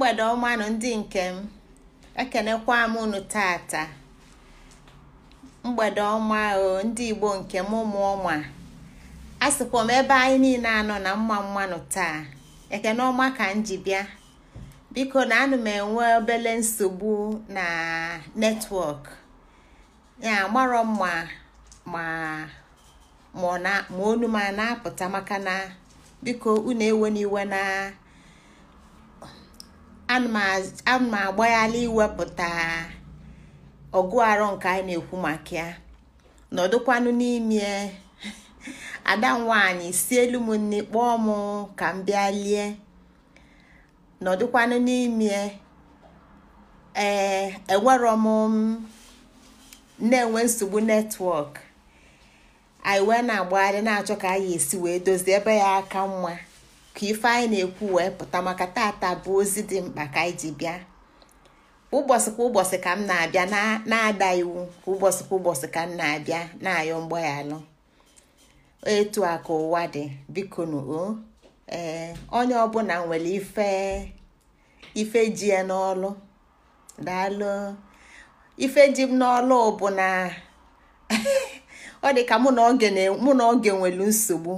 mgbede ọmanụ ndị nke m ekenekwa m unu tata mgbede ọma o ndị igbo nke m ụmụ ọma a sịkwa m ebe anyị niile anọ na mma mmanụ taa ekene ọma ka m ji bịa biko na anụ m enwe obele nsogbu na netwọk ya amarọ mma ma ma onu na-apụta maka na biko unu ewe iwe na. ana m agbaghalị iwepụta ọgụ arọ nke anyị na-ekwu maka ya nọdụkwanụ n'ime ada si elu m nne kpọọ m ka m bịa lie nọdụkwanụ n'ime ee enwerọ m na-enwe nsogbu netwọk anyị wee na-agbagharị na-achọ ka anyị esi wee dozie ebe ya aka mma ka ife anyị na-ekwu wee pụta maka tata bụ ozi dị mkpa ka anyị ji bịa ụbọchị kwa ụbọchị ka m na-abịa na-ada iwu ka ụbọchị kwa ụbọchị ka m na-abịa na-ayọ mgbaghalụ etu a ka ụwa dị biko o ee onye ọbụla nwere ife ife ji ya n'ọlụ daalụ ife ji m n'ọlụ bụ na ọ dị ka mụ na oge nwere nsogbu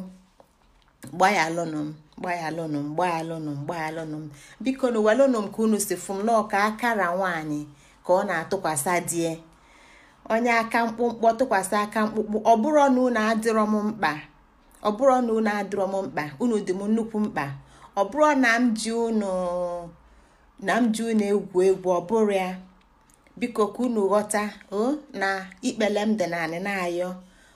gbaghalụnụ m mgbaghalụnụ mgbaghalụnụ mgbaghalụnụ m biko na walụnụ m ka unu si fụm m akara nwaanyị ka ọ na atụkwasị die onye aka mkpụmkpọ tụkwasị aka mkpụkpụ ọ bụrụ na unu adịrọ m mkpa ọ bụrụ na unu adịrọ m mkpa unu dị m nnukwu mkpa ọ bụrụ na m ji unu na m ji unu egwu egwu ọ bụrụ ya biko ka unu ghọta o na ikpele m dị naanị na ayọ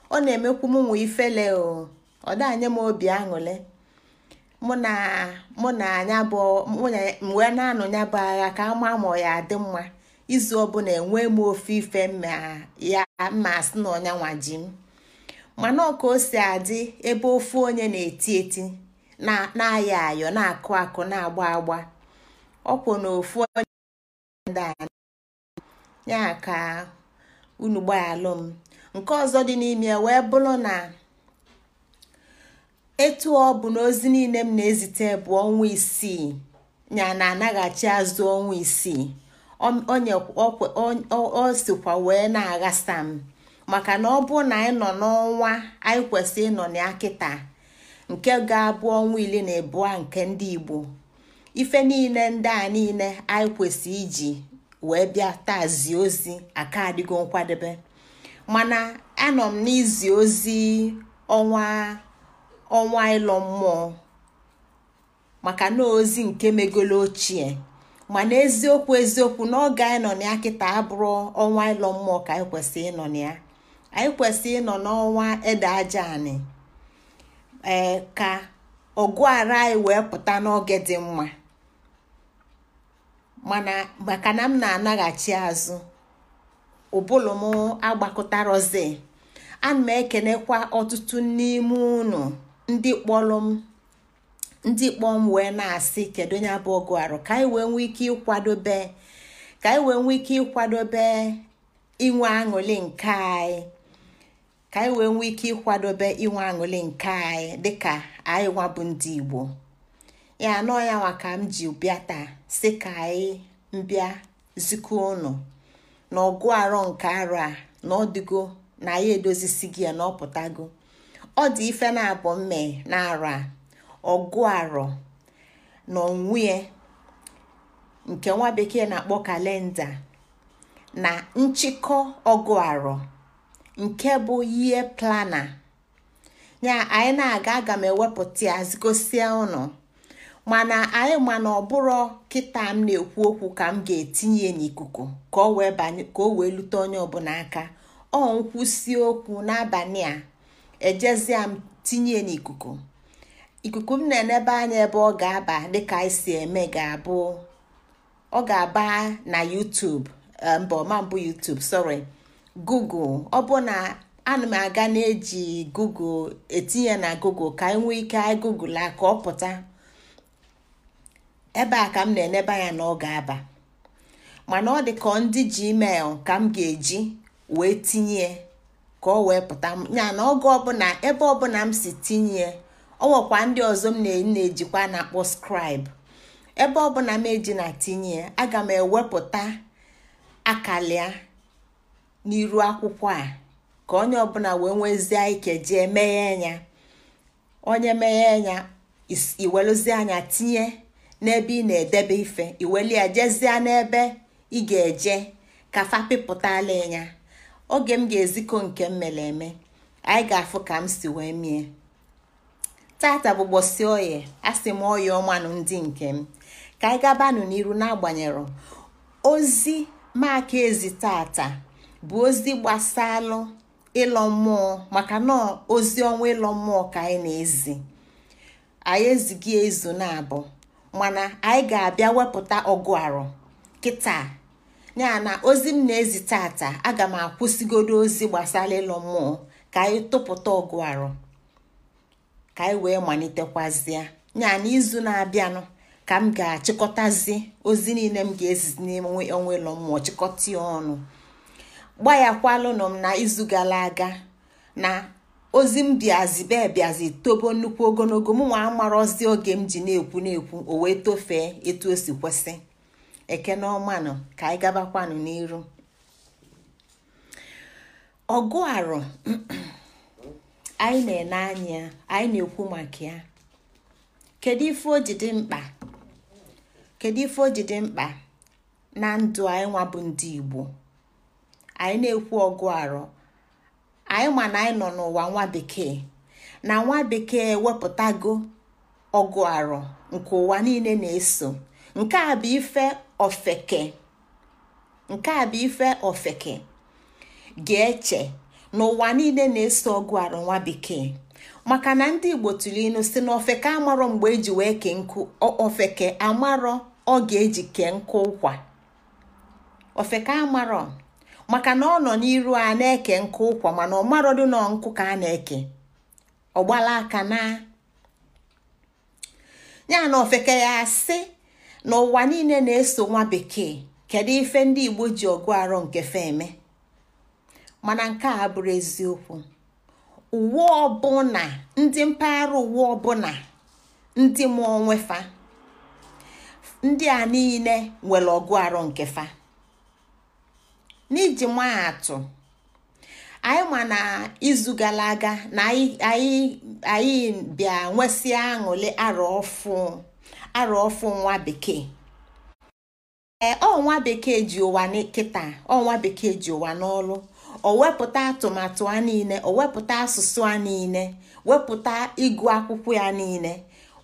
ọ na-emekwu m nwa ifele o ọ dị anya m obi aṅụle mụ na mụ na anya bụ wee na-anụ ya bụ agha ka ama ma ọ ya adị mma izu ọbụla enwe m ofe ife ma ya ma asị na ọnya nwaji m mana ọ ka o si adị ebe ofu onye na-eti eti na-ayọ ayọ na-akụ akụ na-agba agba ọkwụ na ofu onye ya ka unu gbayalụ m nke ọzọ dị n'ime wee bụrụ na etu ọ bụ na ozi niile m na-ezite bụ ọnwa isii ya na anaghachi azụ ọnwa isii o sikwa wee na-aghasa m maka na ọ bụ na anyị nọ n'ọnwa anyị kwesịrị ịnọ na akịta nke ga-abụ ọnwa ile na abụọ nke ndị Igbo ife niile ndị a niile anyị kwesịrị iji wee bịa tazie ozi aka adịgo nkwadebe mana anọ m n'izi ozi ọnwa ọnwa ịlọ mmụọ maka na ozi nke megolo ochie mana eziokwu eziokwu n'oge anyị nọ na ya kịta abụrụ ọnwa ịlọ mmụọ ka anyị kwesị ịnọ na ya anyị kwesị ịnọ n'ọnwa ede aja anị ee ka ọgụ ara anyị wee pụta n'oge dị mma mana maka na m na-anaghachi azụ ụbụlụ m agbakọtarozi ana m ekenekwa ọtụtụ n'ime unu ndị kpọrọ m ndị kpọ m wee na-asị kedu onye bụ ọgụ arụ ka anyị wee nwee ike ịkwadobe ka anyị wee nwee ike ịkwadobe inwe aṅụli nke anyị ka anyị wee nwee ike ịkwadobe inwe nke anyị dịka anyị bụ ndị Igbo ya anọ ya ka m ji bịa taa si ka anyị mbịa zikọ ụnụ na ọgụ arọ nke arọ a na ọdịgo na anyị edozisi gị ya na ọpụtago ọ dị ife na-abụ mme na ara a ọgụ arọ na onwe nke nwa bekee na-akpọ kalenda na nchịkọ ọgụ arọ nke bụ ihe plana ya anyị na-aga aga m ewepụta ya gosia ụnụ mana anyị mana ọ bụrụ kịta m na-ekwu okwu ka m ga-etinye n'ikuku ka o wee lute onye ọbụla aka ọ nkwụsị okwu n'abalị a ejezia m tinye n'ikuku ikuku m na-enebe anya ebe ọ ga-aba dịka anyị si eme ga-abụ ọ ga-aba na YouTube eh, mba ọma mbụ YouTube sorry Google ọ bụ na ana m aga na-eji Google etinye na Google ka anyị nwee ike anyị Google akọ ka ọ pụta ebe a ka m na-enebe anya na ọ ga-aba mana ọ dị ka ndị Gmail ka m ga-eji wee tinye ka ọ wee pụta ya na oge ọbụla ebe ọbụla m si tinye ọ nwekwa ndị ọzọ m na-ejikwa na-akpọ skrib ebe ọbụla m eji na tinye aga m ewepụta akalịa n'iru akwụkwọ a ka onye ọbụla wee nwezie ike jee meghe ya onye meghe ya iweluzie anya tinye n'ebe ị na-edebe ife iwelie jezie n'ebe ị ga-eje ka fa ịnya. oge m ga-ezikọ nke m mere eme anyị ga-afụ ka m si wee mie tata bụ gbosi oye asị m oye ọmanụ ndị nke m ka anyị gabanụ n'iru n'agbanyeghị ozi maka ezi tata bụ ozi gbasalụ ịlọ mmụọ maka na ozi ọnwa ịlọ mmụọ ka anyị na-ezi anyị ezighị ezu na-abụ mana anyị ga-abịa wepụta ọgụ arụ kịta ya na ozi m na-ezi tata aga m akwụsịgodo ozi gbasara ịlọ mmụọ ka anyị tụpụta ọgụ arụ ka anyị wee malitekwazịa ya na izu na-abịanụ ka m ga-achịkọtazi ozi niile m ga-ezizi n'ime onwe ịlọ mmụọ chịkọta ọnụ gbayakwalụnụ m na izu gara aga na ozi m bịazibe bịazi tobo nnukwu ogologo mụnwa amarọzi oge m ji na-ekwu na-ekwu o wee tofee etu o si kwesị ekene nọ ka anyị gabakwanụ n'iru ọgụ arụ anyị na-ene anya anyị na-ekwu maka ya kedu ife o ji dị mkpa kedu ife o ji dị mkpa na ndụ anyị nwabụ bụ ndị Igbo anyị na-ekwu ọgụ arụ anyị ma na anyị nọ n'ụwa nwa bekee na nwa bekee wepụtago ọgụ arụ nke ụwa niile na-eso nke a bụ ife ofeke nke a bụ ife ofeke ga-eche n'ụwa niile na-eso ọgụ arụ bekee maka na ndị igbo tụrụ ilu si na ofeke amarọ mgbe eji wee kee nkụ ofeke amarọ ọ ga-eji kee nkụ ụkwa ofeke amarọ maka na ọ nọ n'iru a na-eke nkụ ụkwa mana ọmarọ dị na nkụ ka a na-eke ọgbala aka na ya na ofeke ya asị n'ụwa niile na-eso nwa bekee kedu ife ndị igbo ji ọgụ arọ nke eme mana nke a bụrụ eziokwu uwe ọbụna ndị mpaghara uwe ọbụna ndị mụọ nwefa ndị a niile nwere ọgụ arọ nke fa n'iji maa atụ anyị ma na izu gara aga na anyị bịa nwesịa aṅụle arọ ọfụụ. arụ ọfụ nwa bekee ee ọnwa bekee ji ụwa nkịta ọnwa bekee ji ụwa o wepụta atụmatụ a niile o wepụta asụsụ a niile wepụta ịgụ akwụkwọ ya niile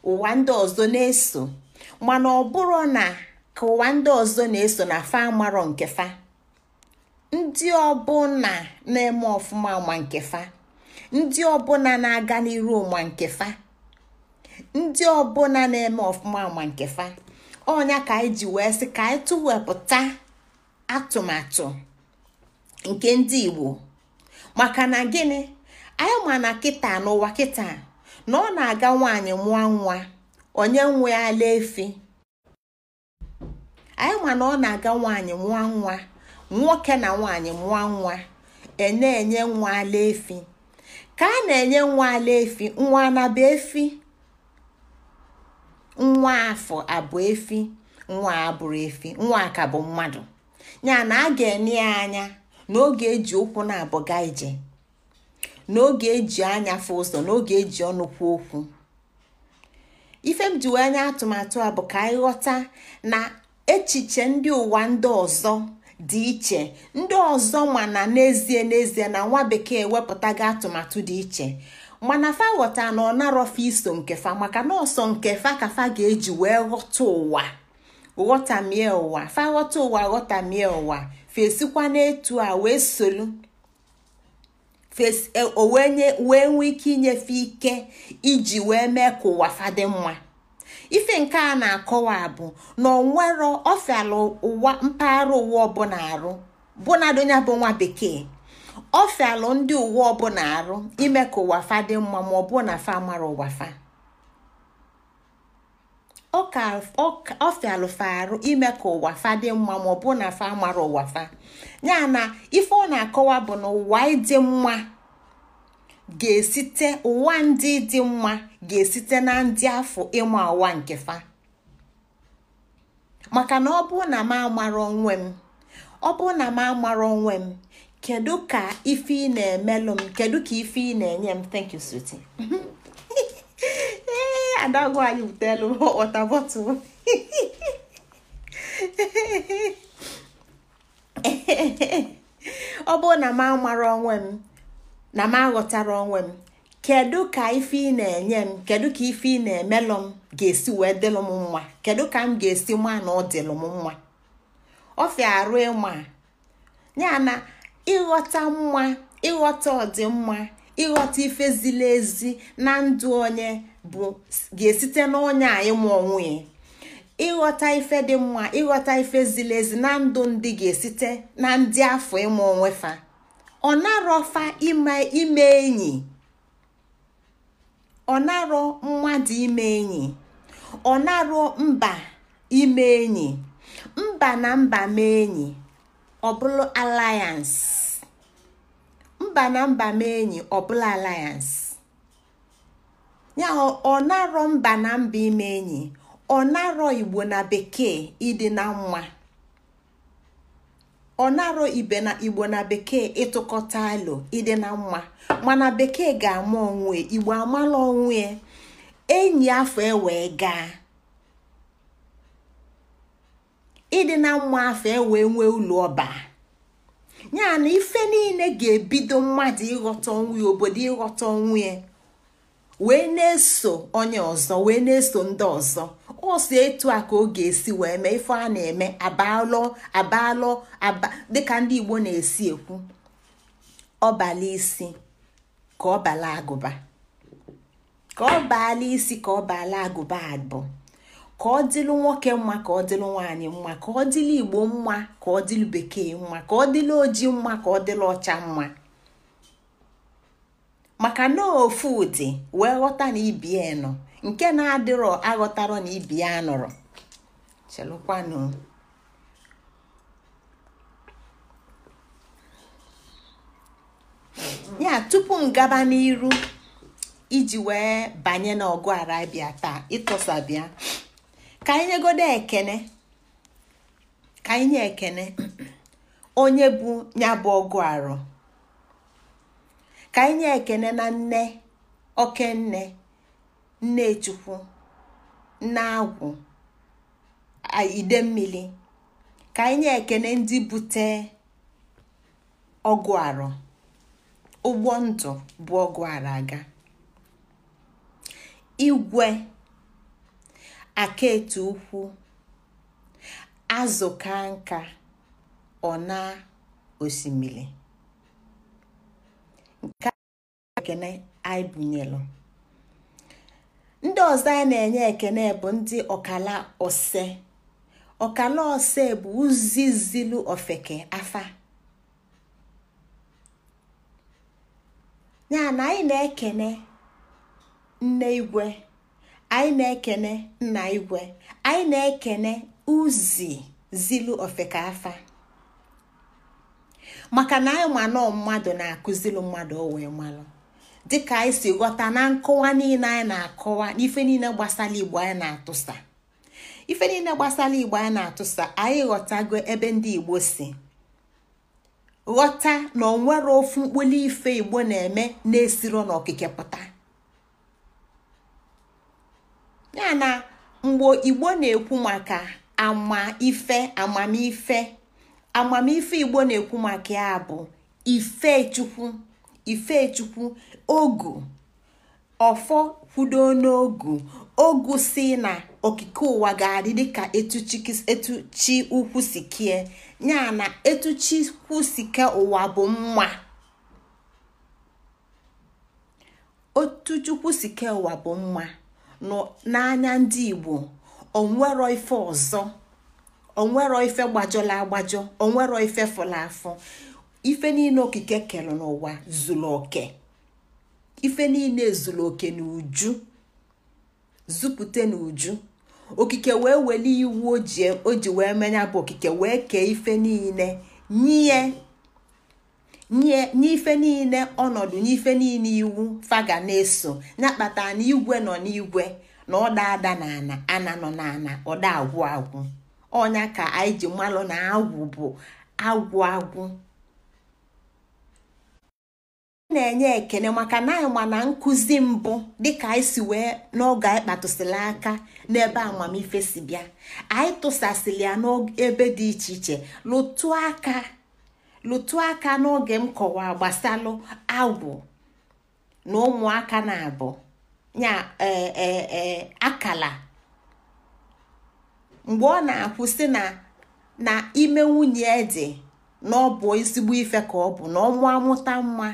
ụwa ndị ọzọ na-eso mana ọ bụrụ na ka ụwa ndị ọzọ na-eso na fa amarọ nke fa ndị na-eme ọfụma ma nke fa ndị ọbụna na-aga n'iru ụma nke fa ndị ọbụla na-eme ọfụma ma nke fa ọnya ka anyị ji wee sị ka anyị tụwepụta atụmatụ nke ndị Igbo maka na gịnị anyị ma na kịta n'ụwa kịta na ọ na-aga nwaanyị mụọ nwa onye nwe ala efi anyị ma na ọ na-aga nwaanyị mụọ nwa nwoke na nwaanyị mụọ nwa e enye nwa ala efi ka a na-enye nwa ala efi nwa anaba efi nwa afọ abụ efi nwa abụrụ efi nwa ka bụ mmadụ ya na a ga-enye ya anya n'oge eji ụkwụ na-abụga ije n'oge eji anya fụ ụzọ n'oge eji ọnụ kwuo okwu ife m ji wee nye atụmatụ a bụ ka anyị ghọta na echiche ndị ụwa ndị ọzọ dị iche ndị ọzọ na n'ezie n'ezie na nwa bekee wepụtago atụmatụ dị iche mana fa ghọta na ọ iso nke fa maka na ọsọ nke fa ka fa ga-eji wee ghọta ụwa ghọtamie ụwa fa ghọta ụwa ghọtamie ụwa fesikwa n'etu a wee solu e, wee nwee ike inyefe ike iji wee mee ka ụwa fadị mma ife nke a na-akọwa bụ na onwero ọfiala ụwa mpaghara ụwa ọbụla arụ bụ donya bụ nwa bekee ofe fialụ ndị uwe ọbụla arụ ime ka ụwa fa mma ma ọ bụ na fa mara ụwa fa ọ fa arụ ime ka ụwa ọ bụ na fa mara ụwa fa ya na ife ọ na-akọwa bụ na ụwa mma ga ụwa ndị dị mma ga-esite na ndị afọ ịma ụwa nke fa maka na ọ bụ na m amara onwe ọ bụ na m amara onwe m kedu ka ife ị na-emelụ m kedu ka ife ị na-enye m thank you sweetie ee adagụ anyị butelu ọta bọtụl ọ bụrụ na m amara onwe m na m aghọtara onwe m kedu ka ife ị na-enye m kedu ka ife ị na-emelụ m ga-esi wee dịlụ m mma kedu ka m ga-esi maa na ọ dịlụ m mma ọfịa arụ ịma ya na ịghọta mma ịghọta ọdịmma ịghọta ife ziri ezi na ndụ onye bụ ga-esite n'onye a ịma onwe ịghọta ife dị mma ịghọta ife ziri ezi na ndụ ndị ga-esite na ndị afọ ịma onwe fa ọ narọfa ime enyi ọ narọ mmadụ ime enyi ọ narọ mba ime enyi mba na mba mee enyi ọ bụrụ alliance mba na mba mee enyi ọ bụla alliance ya ọ narọ mba na mba ime enyi ọ narọ igbo na bekee ịdị na nwa ọ narọ ibe na igbo na bekee ịtụkọta alo ịdị na nwa mana bekee ga-ama onwe igbo amala onwe enyi afọ e wee gaa ịdị na mma afọ e wee nwee ụlọ ọba ya na ife niile ga-ebido mmadụ ịghọta onwe ya obodo ịghọta onwe ya wee na-eso onye ọzọ wee na-eso ndị ọzọ ọsọ etu a ka ọ ga-esi wee mee ife a na-eme abalọ abalọ dịka ndị Igbo na-esi ekwu ọbala isi ka ọ agụba ka ọbala isi ka ọ agụba abụọ ka ọ dịlụ nwoke mma ka ọ dịlụ nwaanyị mma ka ọ dịlụ igbo mma ka ọ dịlụ bekee mma ka ọ dịlụ oji mma ka ọ dịlụ ọcha mma maka na ofu ụdị wee ghọta na ibie nọ nke na-adịrọ aghọtarọ na ibie anọrọ chelụkwanụ ya tupu m gaba n'iru iji wee banye n'ọgụ arabia taa ịtọsa bịa ka anyị nyegodo ekene ka anyị nye ekene onye bụ ya bụ ọgụ arụ ka anyị nye ekene na nne nne nnechukwu nne agwụ ide mmiri ka anyị nye ekene ndị bute ọgụ arụ ụgbọ ndụ bụ ọgụ arụ aga igwe Akaetu ukwu azụka ka nka ọ na osimiri nke ekene anyị bunyelu ndị ọzọ anyị na-enye ekene bụ ndị ọkala ose ọkala ose bụ uzizilu ofeke afa ya na anyị na-ekene nne igwe anyị na-ekene nna igwe anyị na-ekene uzi zilu ofekafa maka na anyị ma nọọ mmadụ na-akụzilu mmadụ o wee malụ dịka anyị si ghọta na nkọwa niile anyị na-akọwa n'ife niile gbasara igbo anyị na-atụsa ife niile gbasara igbo anyị na-atụsa anyị ghọtago ebe ndị igbo si ghọta na onwere ofu mkpụlụ ife igbo na-eme na-esiro n'okike pụta ya na mgbe igbo na-ekwu maka amamife amamife igbo na-ekwu maka ya bụ ifechukwu ifechukwu ogu ọfọ kwudo n'ogu ogu si na okike ụwa ga-adị dịka etu chi ukwu si kie ya na etu ukwu ụwa bụ mma chukwu si ụwa bụ mma n'anya ndị igbo onwero ife ọzọ onwero ife gbajọla agbajọ onwero ife fụla afọ ife niile okike kere n'ụwa zuru oke ife niile zuru oke n'uju zupụte n'uju okike wee iwu e, o ji wee menya bụ okike wee kee ife niile nye nye n'ife niile ọnọdụ n'ife niile iwu faga na-eso ya kpata na igwe nọ n'igwe na ọda ada na ana ana nọ n'ana ọda agwụ agwụ ọnya ka anyị ji malụ na agwụ bụ agwụ agwụ na-enye ekele maka na anyị ma na nkụzi mbụ dịka anyị si wee n'oge anyị kpatụsịrị aka n'ebe amamife si bịa anyị tụsasịrị ya n'ebe dị iche iche lụtụ aka lụtụ aka n'oge m kọwa gbasalụ agwụ na ụmụaka na-abụ ya e, e, e, akala mgbe ọ na akwụsị na na ime nwunye dị na ọ bụ ezigbo ife ka ọ bụ na ọmụ amụta nwa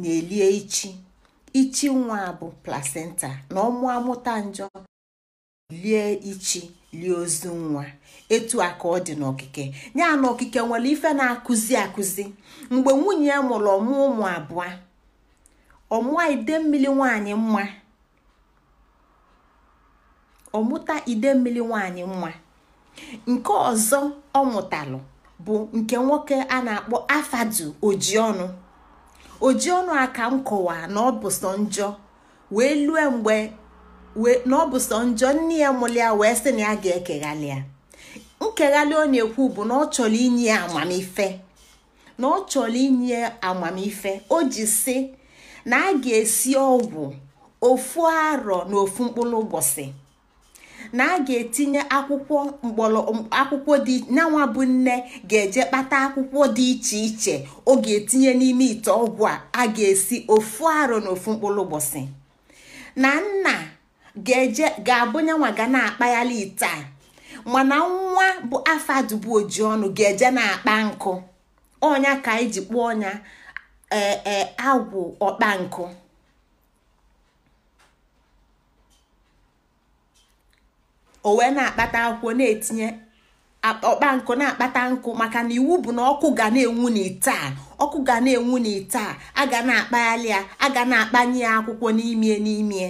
na-elie ichi ichi nwa bụ placenta na ọmụ amụta njọ lie ichi lie ozu nwa etu a ka ọ dị n'okike ya na okike nwere ife na-akụzi akụzi mgbe nwunye ya mụrụ ọmụ ụmụ abụọ ọmụa ide mmiri nwanyị mma ọmụta ide mmiri nwanyị mma nke ọzọ ọ mụtalụ bụ nke nwoke a na-akpọ afadu ojionu ojionu a ka m kọwaa na ọ bụ sọ njọ wee lue mgbe na njọ nne ya mụrụ ya wee sị na ya ga-ekeghalị ya nkeghalị ọ na-ekwu bụ na ọ chọrọ inye amamife na ọ chọrọ inye amamife o ji sị na a ga-esi ọgwụ ofu arọ na ofu mkpụrụ ụbọchị na a ga-etinye akwụkwọ akwụkwọ dị nyanwa bụ nne ga-eje kpata akwụkwọ dị iche iche ọ ga-etinye n'ime ite ọgwụ a a ga-esi ofu arọ na ofu mkpụrụ ụbọchị na nna ga-eje ga-abụnyanwa ga na-akpaghalị ite mana nwa bụ afọ dubu oji ọnụ ga-eje na-akpa nkụ ọnya ka anyị ji kpụọ ọnya ee e, agwụ ọkpa nkụ na-akpata akwụkwọ na-etinye ọkpa nkụ na-akpata nkụ maka na iwu bụ na ọkụ ga na-enwu n'ite a ọkụ ga na-enwu n'ite a a ga na-akpaghalị ya a ga na-akpanye ya akwụkwọ n'imie n'imie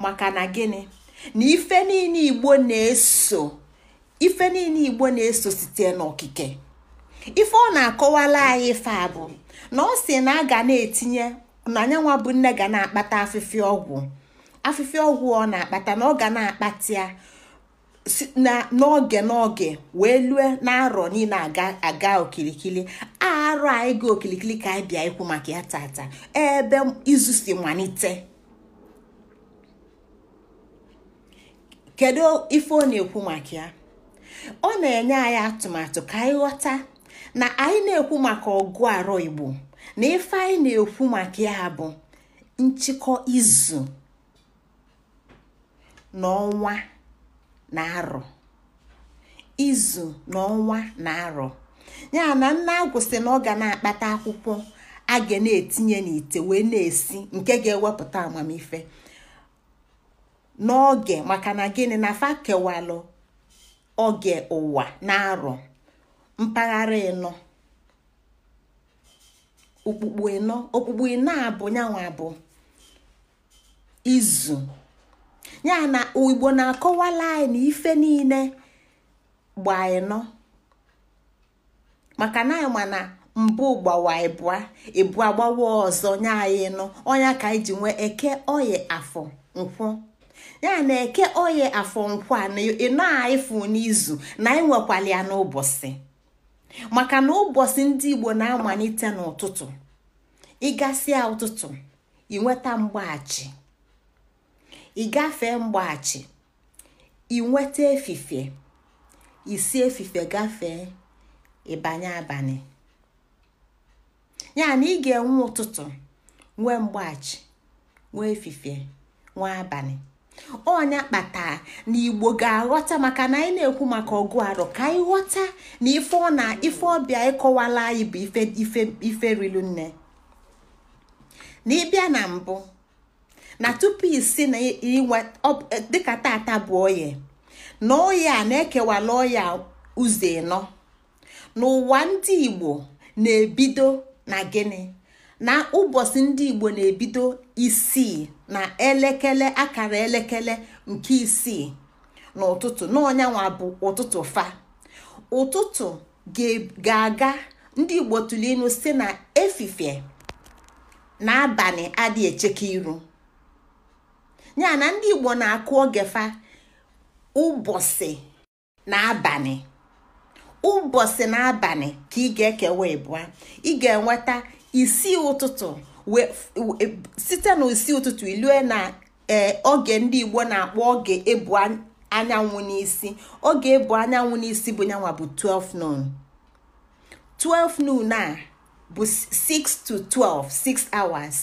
maka na gịnị na ife niile igbo na-eso ife niile igbo na-eso site n'okike ife ọ na-akọwala anyị ife a bụ na ọ si na a ga na-etinye na anyanwa bụ nne ga na-akpata afịfịa ọgwụ afịfịa ọgwụ ọ na-akpata na ọ ga na-akpata ya n'oge n'oge wee lue na-arọ niile aga okirikiri arọ anyị ga okirikiri ka anyị bịa ikwu maka ya tata ebe izu si malite kedu ife ọ na-ekwu maka ya ọ na-enye anyị atụmatụ ka anyị ghọta na anyị na-ekwu maka ọgụ arọ igbo na ife anyị na-ekwu maka ya bụ nchịkọ izu n'ọnwa na arọ izu n'ọnwa na arọ ya na nna agwụsị na ọ ga na-akpata akwụkwọ a ga na-etinye n'ite wee na-esi nke ga-ewepụta amamife n'oge maka na gịnị na fa kewalụ oge ụwa na arọ mpaghara ịnọ okpukpu ịnọ okpukpu ịnọ abụ nyanwa abụ izu ya na igbo na-akọwala anyị ife niile gba ịnọ maka na anyị ma na mbụ gbawa ịbụa ịbụa gbawa ọzọ nye anyị ka anyị ji nwee eke oyi afọ nkwụ ya na eke oye afọ nkwa na ịnọ ịfụ n'izu na ịnwekwala ya n'ụbọchị maka na ụbọchị ndị igbo na-amalite n'ụtụtụ ịgasịa ụtụtụ ịnweta mgbaghachi ịgafee mgbaghachi ịnweta efife isi efife gafee ịbanye abalị ya na ị ga-enwe ụtụtụ nwee mgbaghachi nwee efife nwee abalị ọnya kpatara na igbo ga-aghọta maka na anyị na-ekwu maka ọgụ arọ ka anyị ghọta na ife ọ na ife ọbịa ịkọwala anyị bụ ife ife rilu nne na ịbịa na mbụ na tupu isi na inwe dịka tata bụ oye na a na-ekewala oya ụzọ ịnọ n'ụwa ndị igbo na-ebido na gịnị na ụbọchị ndị igbo na-ebido isii na elekere akara elekere nke isii n'ụtụtụ n'ọnyanwa bụ ụtụtụ fa ụtụtụ ga-aga ndị igbo tụrụ si na efifie na abalị adị echeke iru ya na ndị igbo na-akụ oge fa ụbọchị na abalị ụbọchị na abalị ka ị ga-ekewa ịbụa ị ga-enweta isi ụtụtụ site na isii ụtụtụ ilue na oge ndị igbo na-akpọ oge ebu anyanwụ n'isi oge ebu anyanwụ n'isi bụ nyanwa bụ 12 noon 12 noon a bụ 6 to 12 6 hours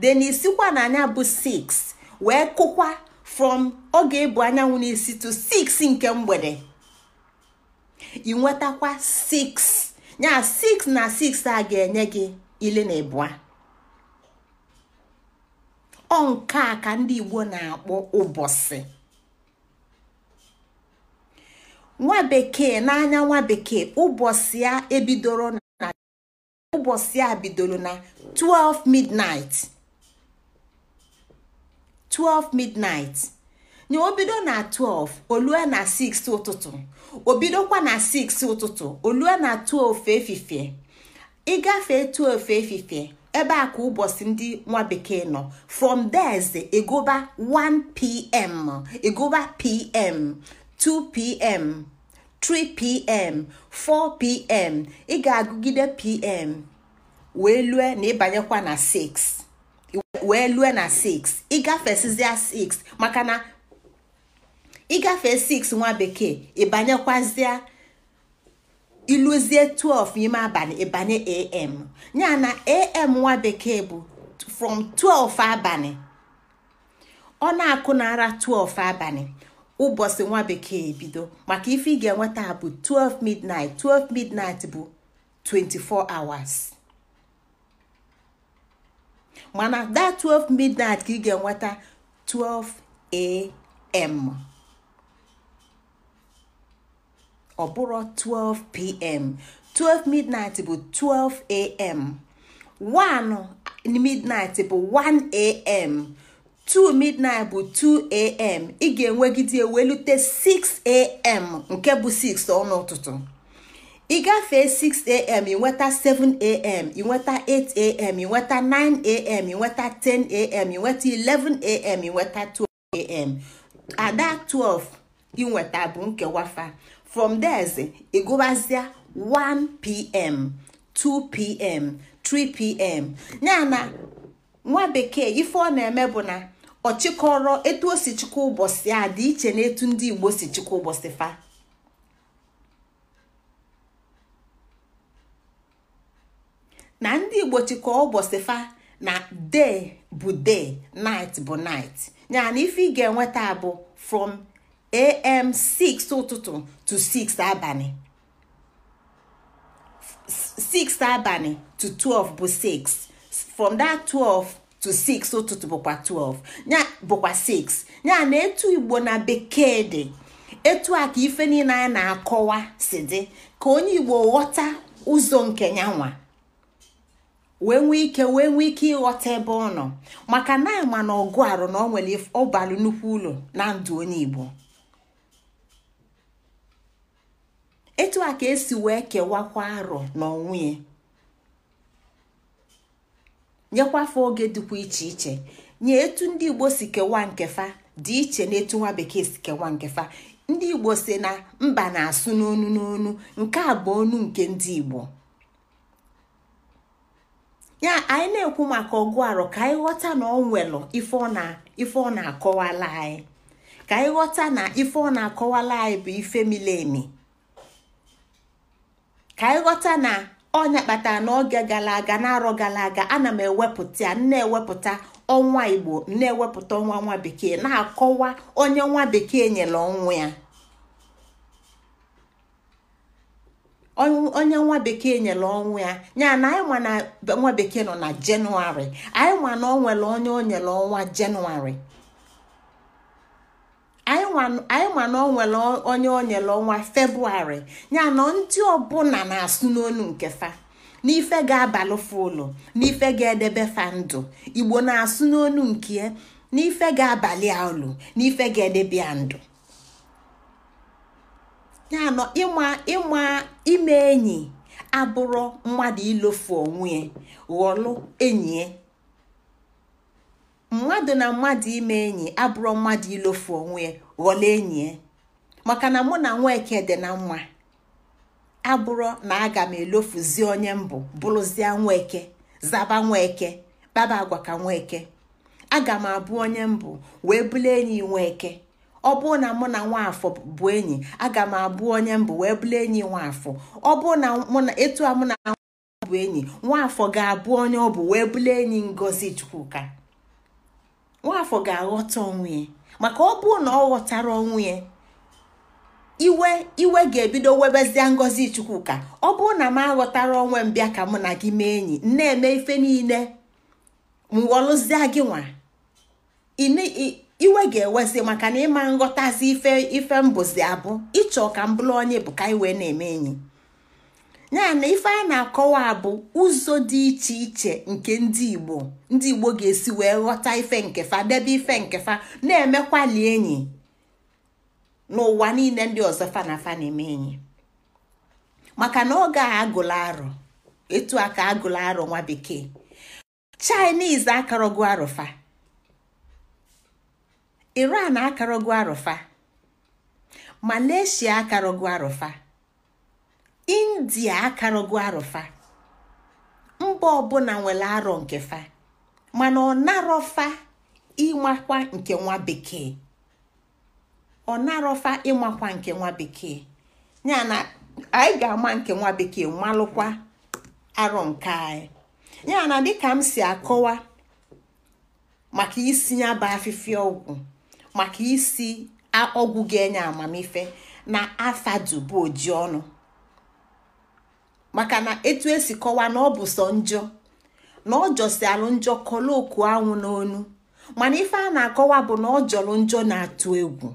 then isikwa na anya bụ 6 wee kụkwa from oge ebu anyanwụ n'isi to 6 nke mgbede ị nwetakwa 6 ya 6 na 6 a ga-enye gị ile na ịbụa ọ nke a ka ndị Igbo na-akpọ ụbọchị nwa bekee n'anya nwa bekee ụbọchị a ebidoro na ụbọchị a bidoro na 12 midnight 12 midnight nye obido na 12 olue na 6 ụtụtụ obidokwa na 6 ụtụtụ olue na 12 efifie ị gafee ofe efifie ebe a ka ụbọchị ndị nwa bekee nọ from there egoba 1pm egoba pm 2pm 3pm 4pm ị ga-agụgide pm wee lue na ịbanyekwa na 6 wee lue na 6 ịgafesizia 6 maka na ịgafe 6 nwa bekee ịbanyekwazie iluzie 12 ime abalị ịbanye am ya na am nwa bekee bụ from 12 abalị ọ na-akụ nara 12 abalị ụbọchị nwa bekee ebido maka ife ị ga-enweta bụ 12 midnight 12 midnight bụ 24 hours mana that 12 midnight ka ị ga-enweta 12 am ọ bụrụ 12 pm 12 midnight bụ 12 am 1 midnight bụ 1 am 2 midnight bụ 2 am ị ga-enwegide welute 6 am nke bụ 6 ọnụ ụtụtụ ị gafee 6am ị nweta 7am ị nweta 8am ị nweta 9am ị nweta 10am ị nweta 11am ị nweta 12am ada 12 ịnweta bụ nkewafa from theze ịgụbazịa 1pm 2pm 3pm ya na nwa bekee ife ọ na-eme bụ na ọ etu o si chịkọ ụbọchị a dị iche na etu ndị igbo si chịkọ ụbọchị fa na ndị igbo chịkọ ụbọchị fa na day bụ day night bụ night ya ife ị ga-enweta bụ from am 6 ụtụtụ to 6 abalị 6 abalị to 12 bụ 6 from that 12 to 6 ụtụtụ bụkwa 12 ya bụkwa 6 ya na etu igbo na bekee dị etu a ka ife niile na-akọwa si dị ka onye igbo ghọta ụzọ nke ya nwa wee nwee ike wee nwee ike ịghọta ebe ọ nọ maka na ama na ọgụ arụ na ọ nwere ọbalụ nnukwu ụlọ na ndụ onye igbo etu a ka esi wee kewakwa arọ n'onwe ya nyekwafa oge dịkwa iche iche nye etu ndị igbo si kewaa nkefa dị iche na etu nwa bekee si kewaa nkefa ndị igbo si na mba na-asụ n'onu n'onu nke a bụ onu nke ndị igbo ya anyị na-ekwu maka ọgụ arọ ka anyị ghọta na ọ nwelụ ife ọ na-akọwala anyị ka anyị ghọta na ife ọ na-akọwala anyị bụ ife mile emi ka ghọta na ọnya kpatara n'oge gara aga na arọ gara aga ana m ewepụta ya na-ewepụta ọnwa igbo na-ewepụta ọnwa nwa bekee na-akọwa onye nwa bekee nyere ọnwa ya onye nwa bekee nyere ọnwa ya ya na anyị na nwa bekee nọ na jenụwarị anyị na ọ nwere onye o nyere ọnwa jenụwarị anyị ma na ọ onye onyere ọnwa febụwarị ya na ndị ọbụla na-asụ n'onu nke fa n'ife ga-abalụ ụlọ n'ife ga-edebe fa ndụ igbo na-asụ n'onu nke ya n'ife ga-abalị a ụlọ n'ife ga-edebe ya ndụ ya na ịma ime enyi abụrụ mmadụ ilofu onwe ya ghọlụ enyi ya mmadụ na mmadụ ime enyi abụrụ mmadụ ilofu onwe ya ghọla enyi maka na mụ na nweke dị na mma abụrụ na aga m elofuzi onye mbụ bụrụzie nweke zaba nweke kpaba agwa ka nweke aga m abụ onye mbụ wee bụrụ enyi nweke ọ bụrụ na mụ na nwaafọ bụ enyi aga m abụ onye mbụ wee bụrụ enyi nwaafọ ọ bụrụ na mụ na etu a mụ na bụ enyi nwaafọ ga-abụ onye ọ bụ wee bụrụ enyi ngozi chukwuka nwaafọ ga-aghọta onwe ya maka ọ bụrụ na ọ ghọtara onwe ya iwe iwe ga-ebido webezie ngọzi chukwuka ọ bụrụ na m aghọtara onwe m bịa ka mụ na gị mee enyi na-eme ife niile m ghọrụzie gị nwa iwe ga-ewezi maka na ịma nghọtazi ife ife mbụzi abụ ịchọ ka m bụrụ onye bụ ka iwe na-eme enyi ya ife a na-akọwa bụ ụzọ dị iche iche nke ndị igbo ndị igbo ga-esi wee ghọta ife nkefa debe ife nkefa na-emekwali enyi n'ụwa niile ndị ọzọ fana fana eme enyi maka na oge a agụla arọ etu a ka agụla arọ nwa bekee chinese arụfa iran akarogo arụfa malaysia akarogo arụfa india akarọgo arụfa mba ọbụla nwere arọ nke fa mana ọ narọfa ịmakwa nke nwa bekee ọ narọfa ịmakwa nke nwa bekee ya na anyị ga-ama nke nwa bekee malụkwa arọ nke anyị ya na dịka m si akọwa maka isi ya bụ afịfịa ọgwụ maka isi ọgwụ ga-enye amamife na afadu bụ oji ọnụ maka na etu esi kọwaa na ọ bụ sọ njọ na ọ alụ njọ kọlụ oku anwụ n'onu mana ife a na-akọwa bụ na ọ jọrọ njọ na-atụ egwu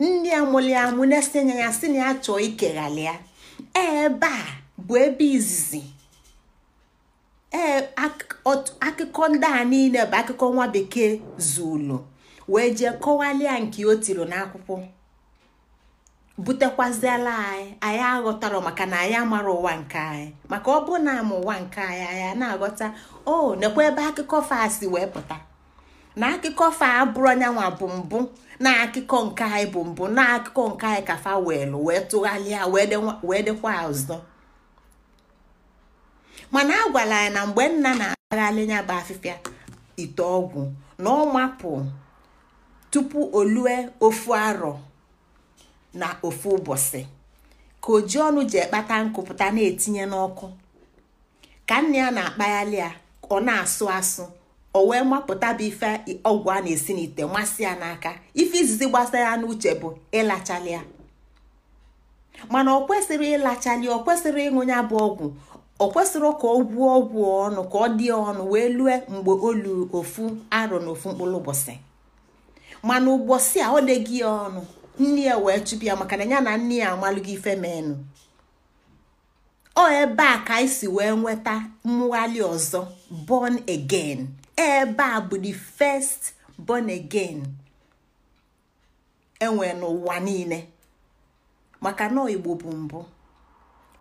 nne ya mụli ya mụ na-esenye ya si na ya chọọ ikeghalị ya e, ebe a bụ ebe izizi ee akụkọ ndị a niile bụ akụkọ nwa bekee zulu wee jee kọwalịa nke o tiri n'akwụkwọ butekwaziela anyị anyị aghọtara maka na anyị amara ụwa nke anyị maka ọ bụ na ama ụwa nke anyị anyị na-aghọta o nekwa ebe akụkọ faa si wee pụta na akụkọ fa abụrụ anyanwụ bụ mbụ na akụkọ nke anyị bụ mbụ na akụkọ nke anyị ka fa weelụ wee tụgharịa wee dịkwa ọzọ mana a gwara anyị na mgbe nna na-agagharị nya bụ afịfịa ite ọgwụ na ọ mapụ tupu olue ofu arọ na ofu ụbọchị ka oji ọnụ ji ekpata nkụpụta na-etinye n'ọkụ ka nna ya na-akpaghalị ya ọ na-asụ asụ o wee mapụta bụ ife ọgwụ a na-esi n'ite masị ya n'aka ife izizi gbasara ya n'uche bụ ịlachalị ya mana ọ kwesịrị ịlachalị ọ kwesịrị ịṅụ ya bụ ọgwụ ọ kwesịrị ka ọ gwuo ọgwụ ọnụ ka ọ dị ọnụ wee lue mgbe olu ofu aro na ofu mkpụrụ ụbọchị mana ụbọchị a ọ dịghị ya ọnụ nne ya wee chụpụ ya maka na ya na nne ya gị ife menụ ọ ebe a ka anyị si wee nweta mwali ọzọ born again ebe a bụ the first born again enwe n'ụwa niile maka na igbo bụ mbụ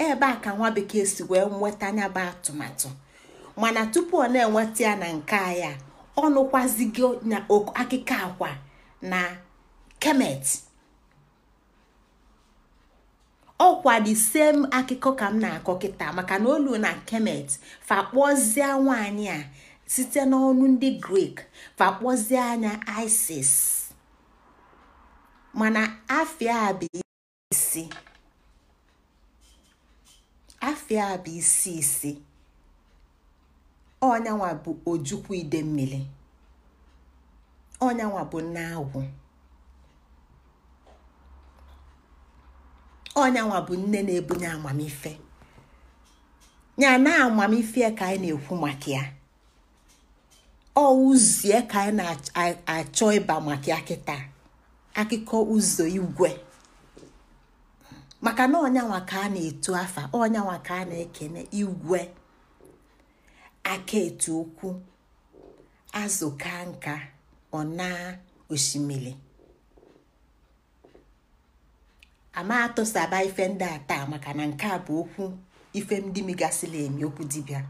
ebe a ka nwa bekee si wee nweta anya bụ atụmatụ mana tupu ọ na-enweta ya na nke ya ọ nụkwazigo na akwa na kemet ọ kwadi same akụkọ ka m na-akọ kịta maka na olu na kemet fakpozie nwanyị a site n'ọnụ ndị grik fakpọzie anya isis mana afịa a bụ isi afịa bụ ojukwu ide mmiri ọnyanwa bụ nna ọnyanwa bụ nne na-ebunye amamife ya na amamife ka anyị na-ekwu maka ya ọ ka anyị na-achọ ịba maka ya kịta akụkọ ụzọ igwe maka na ọnyanwa ka a na-etu afa ọnyanwa ka a na-ekene igwe aka etu okwu azụ ka nka ọ na osimiri ama atụsaba ife ndị a taa maka na nke a bụ okwu ife ndị migasịla emi okwu dibịa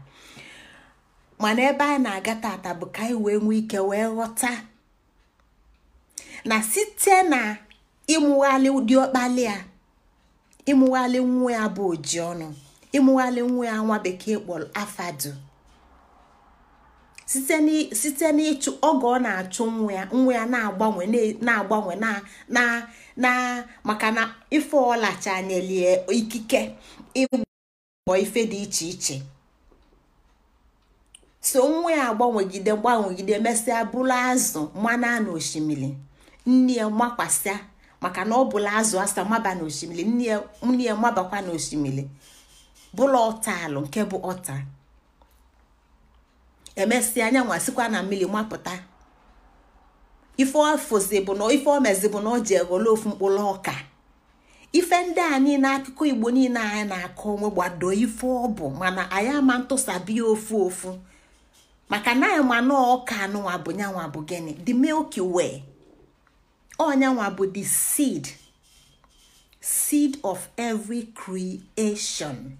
mana ebe a na-aga tata bụ ka anyị wee nwee ike wee ghọta na site na ịmụghalị ụdị ọkpali a ịmụghalị nwa ya bụ oji ọnụ ịmụghalị nwa ya nwa bekee kpọrọ afadu site n'ịchụ oge ọ na-achụ nwa ya nwa ya na-agbanwe na-agbanwe na na maka na ife ọlachanelie ikike ịgbọ ife dị iche iche so nwa ya agbanwegide gbanwegide mesịa bụrụ azụ mana osimiri nne ya makwasịa maka na ọ bụla azụ asa maba osimiri nne ya mabakwa n'osimiri bụla alụ nke bụ ọta emesịa anyanwa sikwa na mmiri mapụta ife ofozi na ife na o ji eghole ofu mkpụrụ ọka ife ndị a niile akụkọ igbo niile anyị na-akọ onwe gbado ife ọbụ mana anyị ama ntụsabia ofu ofu maka na anyị ma na ọka anụnwa bụ nyanwa bụ gịnị the milky way onyanwa bụ the seed seed of every creation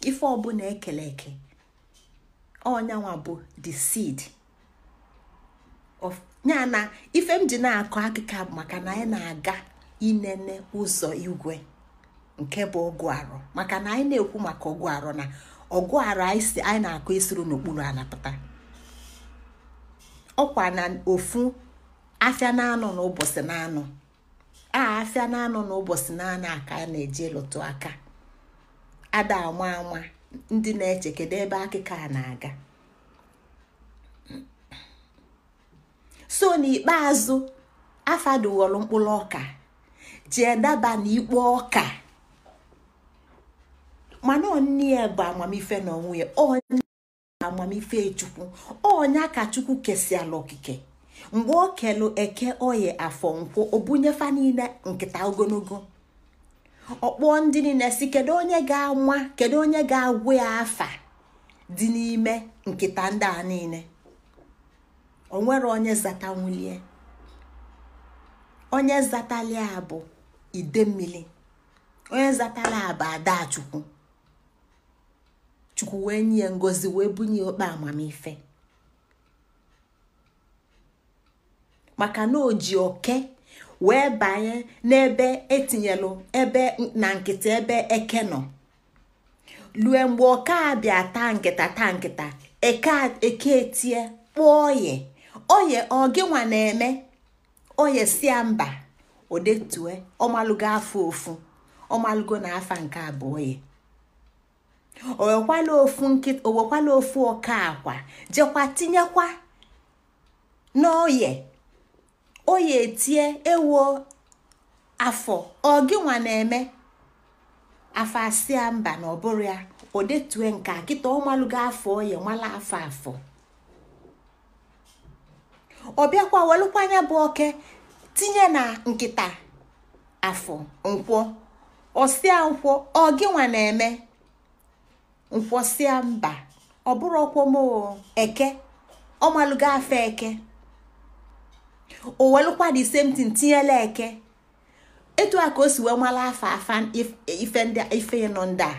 ife ọbụla ekele eke ọnyanwa bụ the seed of ya na ife m ji na-akọ akụkọ maka na anyị na-aga inene ụzọ igwe nke bụ ọgụ arọ maka na anyị na-ekwu maka ọgụ arọ na ọgụ arọ anyị na-akọ esiri n'okpuru anapụta ọkwa na ofu afịa na-anọ n'ụbọchị na-anọ afia na-anọ n'ụbọchị na aka aka na eji lụtụ aka ada ama ama ndị na-eche kedu ebe akịka a na-aga so n'ikpeazụ afadughọrọ mkpụrụ ọka jee daba n'ikpo ọka mana onye bụ amamife na onwe onye amamife chukwu onye ka chukwu okike mgbe o kelu eke oyi afọ nkwụ obunyefa niile nkịta ogologo ọkpọ ndị niile si kedu onye ga-anwa kedu onye ga-agwụ ya afa dị n'ime nkịta ndị a niile onwere onye nwulie onye zatalia bụ idemmili onye zatala bụ adachukwu chukwu wee nye ngozi wee bunye okpe amamife maka na o ji oke wee banye n'ebe etinyelụ ebe na nkịta ebe eke nọ lue mgbe ọka abịa taa nkịta taa nkịta eke etie e kpụọ oye oye ọgịnwa na-eme oye sia mba odetue ọmalụgo afọ ofu ọmalụgo na afa nke abụọ ya owekwala ofu owekwala ofu ọka akwa jekwa tinyekwa n'oye o etie ewo afọ ọ nwa na-eme afọ asịa mba na ọbụrụ ya o detue nke kịta ọ malụgo afọ oye nwala afọ afọ ọ bịakwa welụkwanya bụ oke tinye na nkịta afọ nkwọ ọsịa nkwọ ọ nwa na-eme nkwọsịa mba ọ bụrụ ọkwọmoo eke ọ afọ eke o welụkwa the same thing eke etu a ka o si wee mara afa afa ife ndị ife nọ ndị a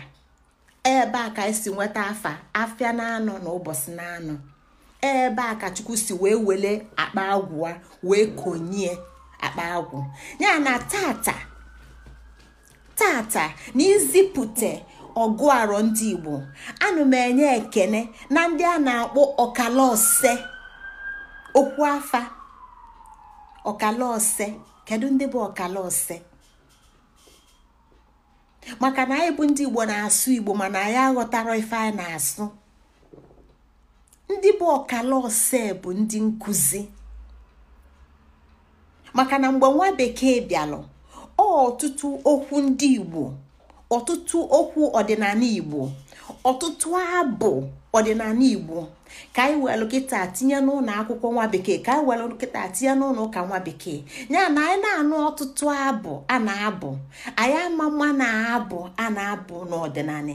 ebe a ka esi nweta afa afịa na-anọ na ụbọchị na-anọ ebe a ka chukwu si wee wele akpa agwụ wee konyie akpa agwụ ya na tata tata na izipụte ọgụ arọ ndị igbo anụ m enye ekene na ndị a na-akpọ ọkala okwu afa ọkala ose kedu ndị bụ ọkala ose maka na anyị bụ ndị igbo na-asụ igbo mana anyị aghọtara ife anyị na-asụ ndị bụ ọkala ose bụ ndị nkụzi maka na mgbe nwa bekee bịalụ ọtụtụ okwu ndị igbo ọtụtụ okwu ọdịnala igbo ọtụtụ abụ ọdịnala igbo ka anyị welụ kịta tinye n'ụlọ akwụkwọ nwa bekee ka anyị welụ kịta tinye n'ụlọ ụka nwa bekee ya na anyị na-anụ ọtụtụ abụ a na-abụ anyị ama mma na abụ a na-abụ n'ọdịnala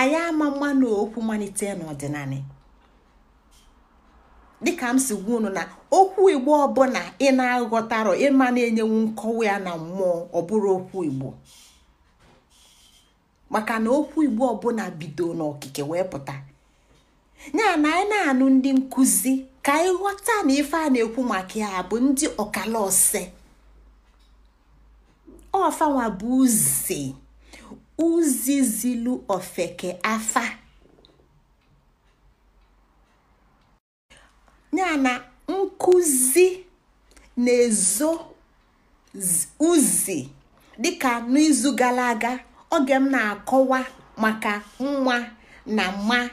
anyị ama mma na okwu malite n'ọdịnala dịka m si gwa unu na okwu igbo ọbụla ị na-aghọtarọ ịma na-enyewu nkọwa ya na mmụọ ọ bụrụ okwu igbo maka na okwu igbo ọbụla bido n'okike wee pụta ya na anyị na-anụ ndị nkụzi ka anyị ghọta na ife a na-ekwu maka ya bụ ndị ọkala ọfanwa bụ uzi uzi zilu ofeke afa ya na nkụzi na-ezo uzi dịka n'izu gara aga oge m na-akọwa maka nwa na mma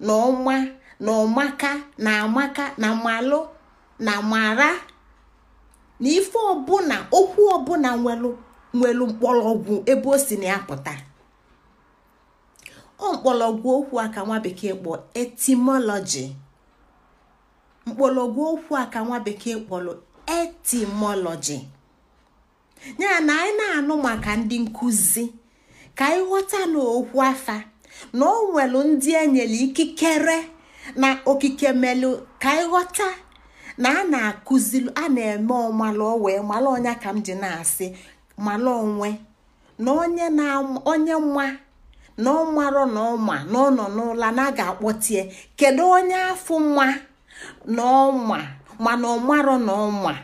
na ọma na ọmaka na amaka na malụ na mara na ife ọbụla okwu ọbụla nwelu nwelu mkpọrọgwụ ebe o si na ya pụta ọ mkpọrọgwụ okwu a ka nwa bekee kpọọ etimọlọji mkpọrọgwụ okwu a ka nwa bekee kpọrọ etimọlọji ya na anyị na-anụ maka ndị nkụzi ka anyị ghọta na afa na o nwelu ndị enyere ikikere na okike melụ ka anyị na a na akụziri a na-eme ọmalụ wee malụ onye ka m ji na-asị malụ onwe na onye nwa na ọmarọ na ọma na ọ na a akpọtie kedu onye afọ nwa na ọma mana ọmarọ na ọma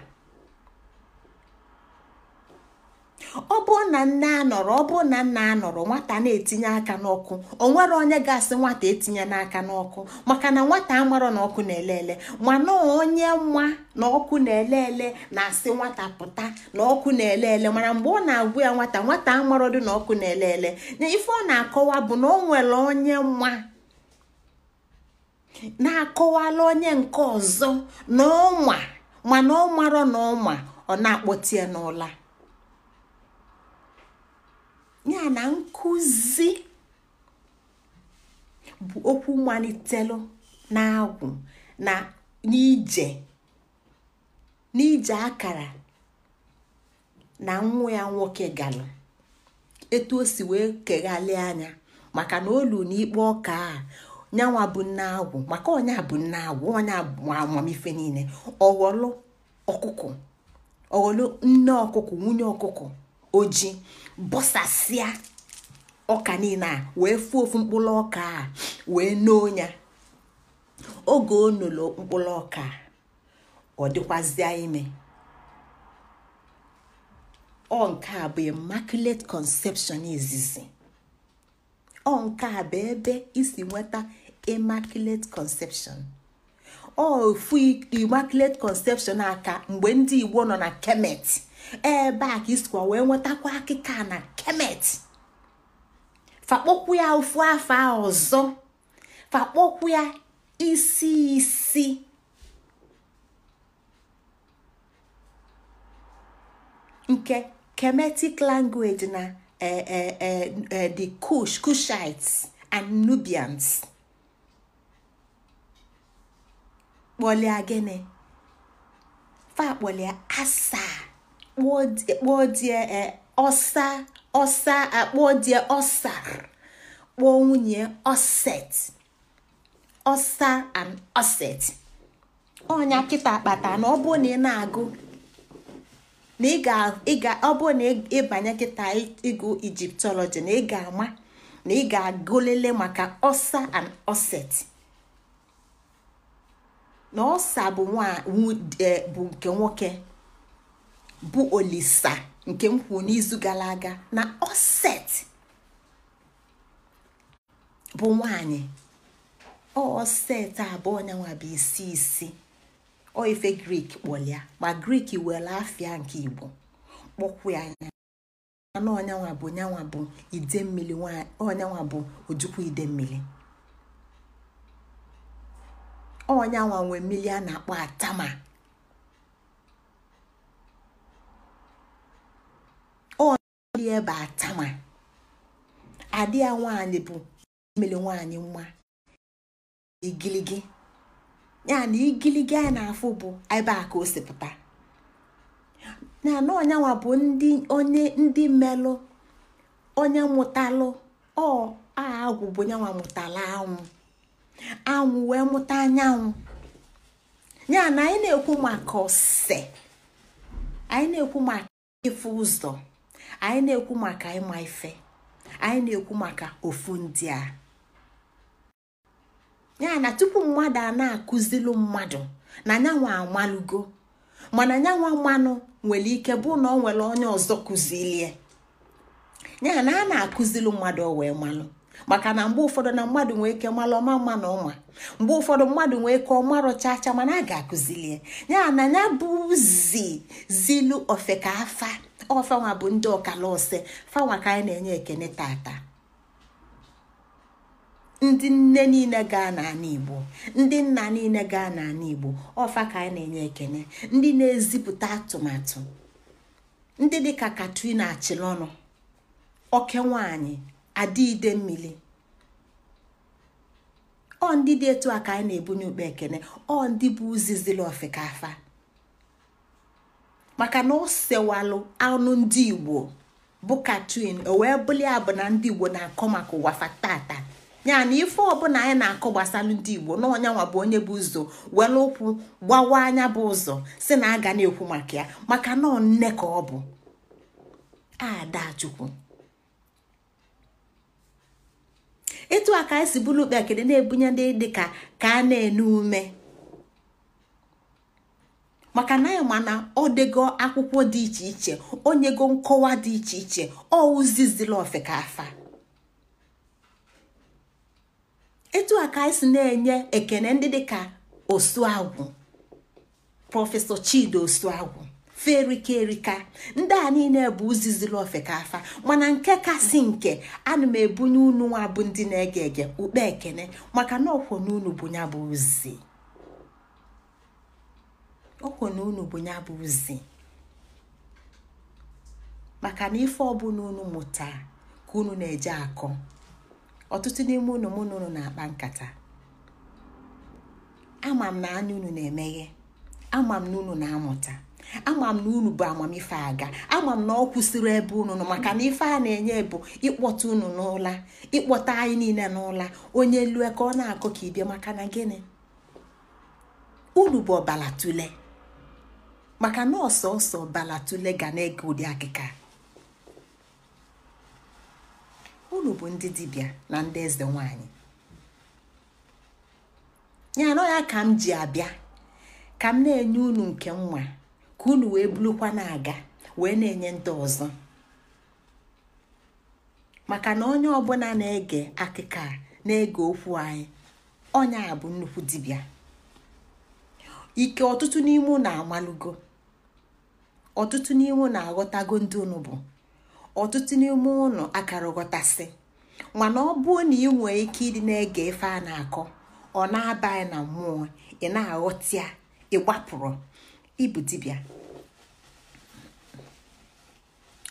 ọ bụrụ na nne anọrọ ọ na nna anọrọ nwata na-etinye aka n'ọkụ o nwere onye ga-asị nwata etinye n'aka n'ọkụ maka na nwata amarọ na ọkụ na-elele mana onye nwa na ọkụ na-elele na-asị nwata pụta na ọkụ na-elele mana mgbe ọ na-agwụ ya nwata nwata amarọ dị na ọkụ na-elele na ife ọ na-akọwa bụ na ọ nwere onye nwa na-akọwala onye nke ọzọ na ọnwa mana ọ marọ na ọnwa ọ na-akpọtie n'ụla ya na nkụzi bụ okwu malitelu na-agwụ na n'ije akara na nwa ya nwoke galụ etu o si wee keghalị anya maka na olu n'ikpe ọka a nyanwa bụ nne agwụ maka onye bụ nne agwụ onye amamife niile ọghọlụ ọkụkọ ọghọlụ nne ọkụkọ nwunye ọkụkọ ojii. bọsasịa ọka niile a wee fụ ofu mkpụrụ ọka a wee noo ya oge o nolo mkpụrụ ọka ọ dịkwazịa ime ọ nke a bụ immaculate conception izizi ọ nke a bụ ebe isi nweta immaculate conception ọ ofu immaculate conception aka mgbe ndị igbo nọ na kemet ebe a ka isikwa wee nwetakwa akịka na kemet fakpokwu ya ofu afọ ọzọ fakpokwu ya isi isi nke kemetic language na e, e, e, the kush kushites and nubians kpọlia gịnị fa kpọlia asaa kpọdie ọsa ọsa akpọdie ọsa kpụọ nwunye ọset ọsa and ọset ọnya kịta akpata na ọ bụ na ị na-agụ na ị ga ọ bụrụ na ịbanye kịta ịgụ ijiptọlọji na ị ga-ama na ị ga-agụlele maka ọsa and ọset na ọsa bụ nwa e, bụ nke nwoke bụ olisa nke m kwuru n'izu gara aga na oset bụ nwanyị oset abụọ nwa bụ isi isi ọ ife grik kpọlịa ma grik were afịa nke igbo kpọkwụ ya anya anụ ọnyanwa bụ nyanwa bụ ide mmiri ọnyanwa bụ ojukwu ide mmiri ọnyanwa nwee mmiri a na-akpọ atama ya bụ atama adị ya nwaanyị bụ imele nwaanyị nwa igiligi ya na igiligi anyị na-afụ bụ ebe a ka o sipụta na na ọnyanwa bụ ndị onye ndị melụ onye mụtalụ ọ agwụ bụ nyawamụtala mụtala anwụ anwụ wee mụta anyanwụ ya na anyị na-ekwu maka ose anyị na-ekwu maka ife ụzọ anyị na-ekwu maka ịma ife anyị na-ekwu maka ofu ndị a ya na tupu mmadụ a na-akụzilu mmadụ na nyanwa amalụgo mana nyanwa mmanụ nwere ike bụ na ọ nwere onye ọzọ kụzilie ya na a na-akụzilu mmadụ o wee malụ maka na mgbe ụfọdụ na mmadụ nwee ike mara ọma mma na ọma mgbe ụfọdụ mmadụ nwee ike ọma acha mana a ga-akụzilie ya na ya bụ zi zilu ofeka afa ọfanwa bụ ndị ọkala ọsị fanwa ka anyị na-enye ekene tata ndị nne niile gaa n'ala igbo ndị nna niile gaa n'ala igbo ọfa ka anyị na-enye ekene ndị na-ezipụta atụmatụ ndị dịka katrina achilọnụ oke nwanyị adị ide mmiri ọ ndị dị etu a ka anyị na-ebunye ukpe ekene ọ ndị bụ uzizili afa maka na o sewalụ anụ ndị igbo bụ katin o wee bụli ya na ndị igbo na-akọ maka ụwa fatata ya na ife ọbụla anyị na-akọ gbasalụ ndị igbo na ọnyanwa bụ onye bụ ụzọ were ụkwụ gbawa anya bụ ụzọ si na aga na-ekwu maka ya maka na nne ka ọ bụ adachukwu etu a ka anyị si bụrụ ukpe na-ebunye ndị dịka ka a na ene ume maka na ya mana ọ dego akwụkwọ dị iche iche onyego nkọwa dị iche iche ọ ụzizila ofeka afa etu a ka anyị si na-enye ekene ndị dịka osuagwụ prọfesọ chidi osuagwụ ferika erika ndị a niile bụ ụzizila ofeka afa mana nke kasị nke ana m ebunye unu nwa bụ ndị na-ege ege ukpe ekene maka na ọkwọ n'unu bụ ya bụ ozizi ọ kwụ na unu bụ ya bụ ozi, maka na ife ọbụla unu mụta ka unu na-eje akọ ọtụtụ n'ime unu mụ na unu na-akpa nkata ama m na anya unu na-emeghe ama m na unu na-amụta ama m na unu bụ amamife aga ama m na ọ kwụsịrị ebe unu nọ maka na ife a na-enye bụ ịkpọta unu n'ụla ịkpọta anyị niile n'ụla onye lue ka ọ na-akọ ka ịbịa maka na gịnị unu bụ ọbala tụlee. maka na ọsọ Balatulega ga na-ege ụdị akịka unu bụ ndị dibia na ndị eze nwanyị ya anọ ya ka m ji abịa ka m na-enye unu nke nwa ka unu wee bulukwa na-aga wee na-enye ndị ọzọ maka na onye ọbụla na-ege akịka na-ege okwu anyị onye a nnukwu dibịa ike ọtụtụ n'ime ụlọ amalugo ọtụtụ n'ime ụnụ aghọtago ndị unu bụ ọtụtụ n'ime ụnụ akara ghọtasị mana ọ bụrụ na ị nwee ike ịdị na-ege ife a na-akọ ọ na-abaghị na mmụọ ị na-aghọta ya ị gbapụrụ dibịa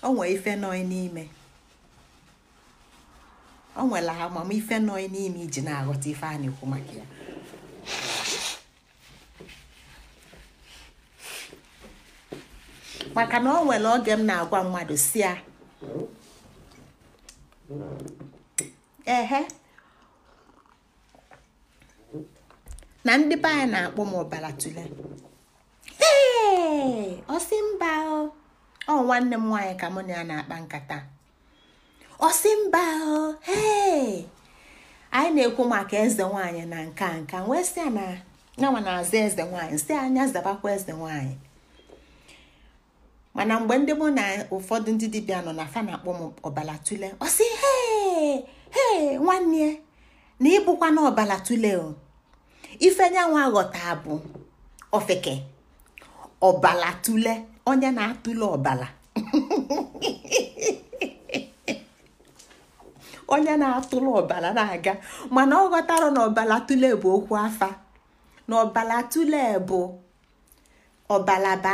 o nwee ife nọị n'ime o nwere amamife nọị n'ime iji na-aghọta ife a na-ekwu maka ya maka na o nwere oge m na-agwa mmadụ si ya ehe na ndị be anyị na-akpọ m ọbara tule ee ọsị mba ọ nwanne m nwaanyị ka mụ na ya na-akpa nkata ọsị mba ee anyị na-ekwu maka eze nwaanyị na nka nka wee sị ya na na-aza eze nwaanyị si anya zabakwa eze nwaanyị mana mgbe ndị mụ na ụfọdụ ndị dibịa nọ na fa na-akpọ m ọbala tule ọ sị he nwanne na ịbụkwa na ọbala tule o ife nyanwa bụ ofeke ọbala tule onye na-atụle ọbala onye na-atụle ọbala na-aga mana ọ ghọtara na ọbala tule bụ okwu afa na ọbala tule bụ ọbala bụ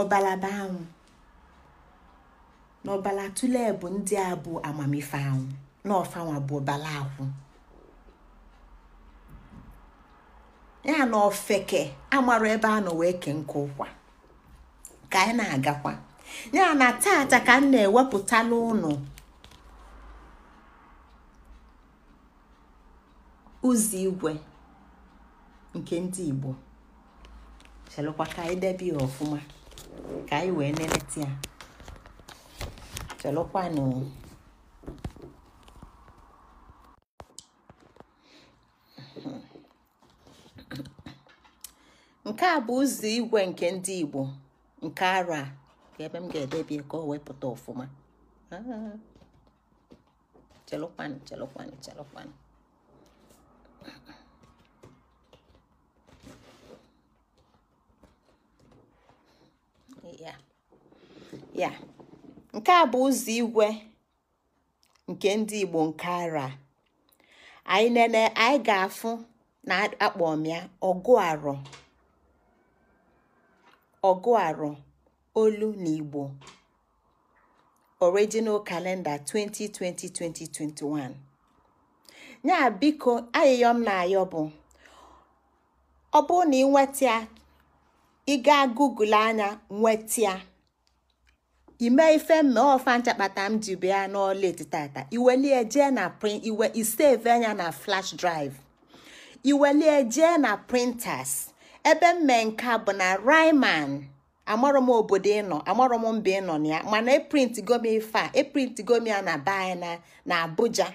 ọbalaba anwụ na ọbala tụlee bụ ndị a bụ amamife anwụ na ọfanwa bụ ọbala akwụ ya na ofeke amarụ ebe a nọ wee nke ụkwa ka anyị na-agakwa ya na tata ka m na-ewepụta n'ụnụ ụzọ igwe nke ndị Igbo chelụkwa ka anyị debe ya ọfụma ka anyị wee neleta ya chelụkwanụ nke a bụ ụzọ igwe nke ndị igbo nke ara ebe m ga-edebie ka o wepụta ọfụma ah, chelụkwanụ chelụkwanụ chelụkwanụ ya nke a bụ ụzọ igwe nke ndị Igbo nke ara anyị nene anyị ga-afụ na akpọ ọmịa ya ọgụ arọ olu na Igbo original kalenda 2020-2021 ya biko m na ayọ bụ ọ bụrụ na ị nweta ya google anya nweta imee ife mme ọfa nchakpata m ji bịa n'ọla etitata iwelie jee na print iwe anya na flash drive iwelie jee na printers ebe mme nke bụ na riman amarọ m obodo ịnọ amarọ m mba ịnọ na ya mana eprint gomi ife a eprint na be na Abuja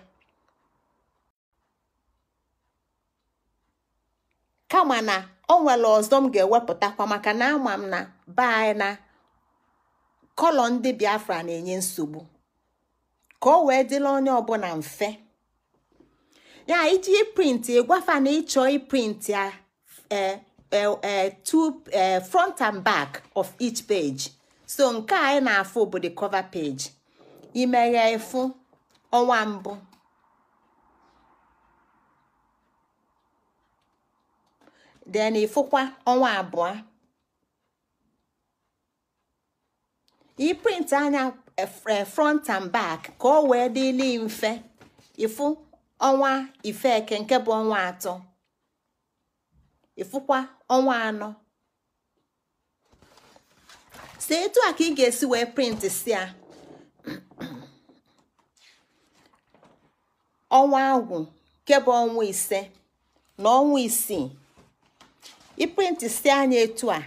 kama na nwere ọzọ m ga-ewepụtakwa maka na ama m na be kọlọ ndị biafra na-enye nsogbu ka o wee dịla onye ọbụla mfe ya iji prịntị ịgwafa na ịchọ print a e, e, e, front and back of each page so nke a anyị na-afụ bụ the cover page imeghe efu ọnwa mbụ then ịfụkwa ọnwa abụọ iprint anya eh, eh, front and back ka ọ wee dịli mfe ịfụ ọnwa ifeke nke bụ ọnwa atọ ịfụkwa ọnwa anọ si etu a ka ị ga-esi wee print si a ọnwa agwụ nke ọnwa ise na ọnwa isii iprint si anya etu a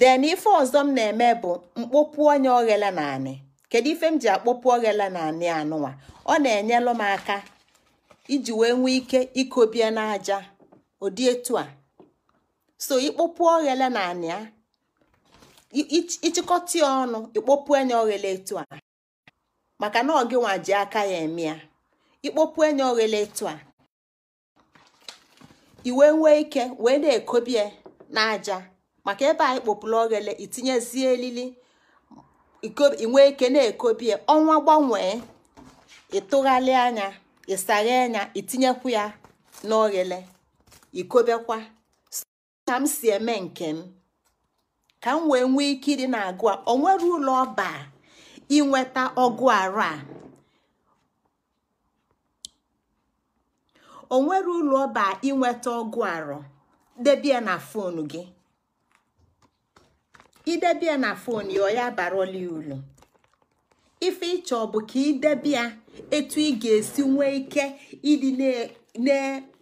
Den ife ọzọ m na-eme bụ mkpopu onye oghele na anị kedu ife m ji akpọpu oghele na anị anụnwa ọ na-enyelụ m aka iji wee nwee ike ikobie n'aja ụdị etu a so ikpopu oghele na anị a ịchịkọta ya ọnụ ikpopu enye oghele etu a maka na ọgị nwa ji aka ya eme ya ikpopu enye oghele etu a iwe nwee ike wee na-ekobie n'aja maka ebe anyị kpopụla oghele itinyezie elili inwe ike na-ekobie ọnwa gbanwee ịtụgharị anya ịsaghe anya itinyekwu ya n'oghele ikobekwa ka m si eme nke m ka m wee nwee ike ịdị na-agụ a o nwere ụlọ ọba inweta ọgụ arụ a debie na fon gị idebia na fon ya ya barọla ulu ife ịchọ bụ ka idebia etu ị ga-esi nwee ike ịdị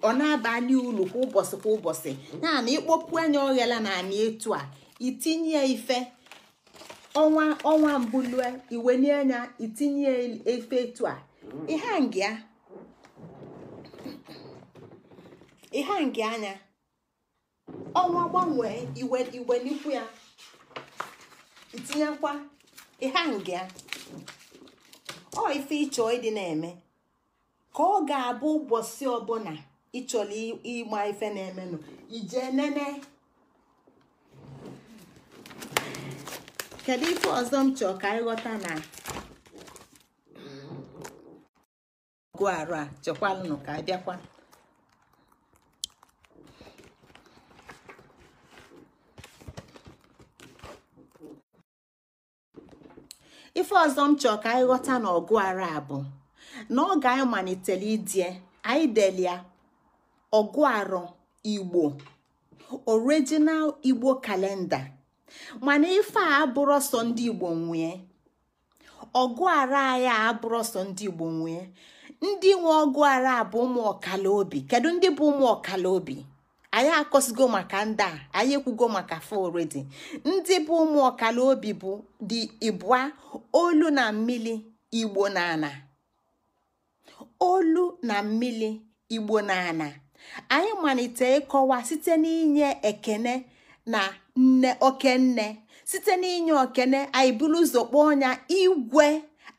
ọ na-abalị ulu kwa ụbọchị kwa ụbọchị ya na ịkpọpụ anya oghela na anị etu a itinye ife ọnwa ọnwa mbụlue iwenye anya itinye ife etu a ịha ngị anya ọnwa gbanwee iwelikwu ya itinyekwa ihe nga ọ ife ịchọ ịdị na-eme ka ọ ga-abụ ụbọchị ọbụla ịchọrọ ịgba ife na-emenụ ije nene kedu ife ọzọ m chọọ ka ịghọta na ọgụ arụ a chọkwalụnụ ka abịakwa ife ọzọ m chọọ ka anyị ghọta na ọgụ ara bụ na oge anyị malitere idie anyị delia ọgụ arọ igbo original igbo kalenda mana ife a abụrụ sọ ndị igbo nwee ọgụ ara anyị a abụrụ sọ ndị igbo nwee ndị nwe ọgụ ara bụ ụmụ ọkala obi kedu ndị bụ ụmụ ọkala obi anyị akọsigo maka ndị a anyị ekwugo maka foredi ndị bụ ụmụ ọkala obi bụ dị ịbụa olu na mmili igbo na ana olu na mmili igbo na anyị malite ịkọwa site n'inye ekene na nne okenne site n'inye okene anyị buru ụzọ kpọọ ọnya igwe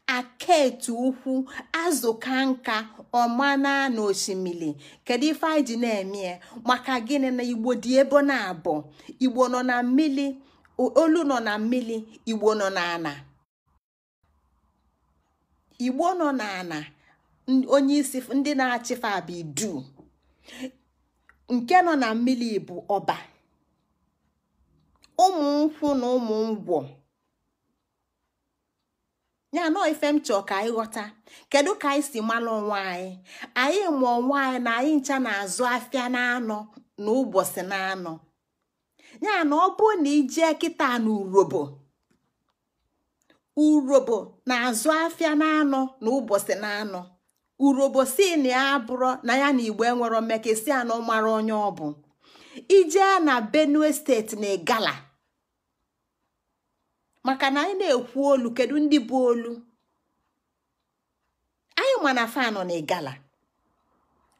aka aketu ukwu azụka nka ọmana na osimiri kedu ife anyị ji na-eme maka gịnị na igbo dị ebe na abụ igbo nọ na mmiri olu nọ na mmiri igbo nọ na ana igbo nọ onye isi ndị na-achịfe bụ iduu. nke nọ na mmiri bụ ọba ụmụ nkwụ na ụmụ ngwọ ya nọ ife m chọọ ka anyị ghọta kedu ka anyị si malụ onwe anyị anyị nwaanyị onwe na anyị ncha na-azụ afịa na-anọ na ụbọchị na-anọ ya na ọ bụ na ijee kịta na urobo urobo na-azụ afịa na-anọ na ụbọchị na-anọ urobo si na ya abụrụ na ya na igbo enwero mmekesi anọ mara onye ọ bụ ijee na benue steeti na igala maka na anyị na-ekwu olu kedu ndị bụ olu anyị ma na na igala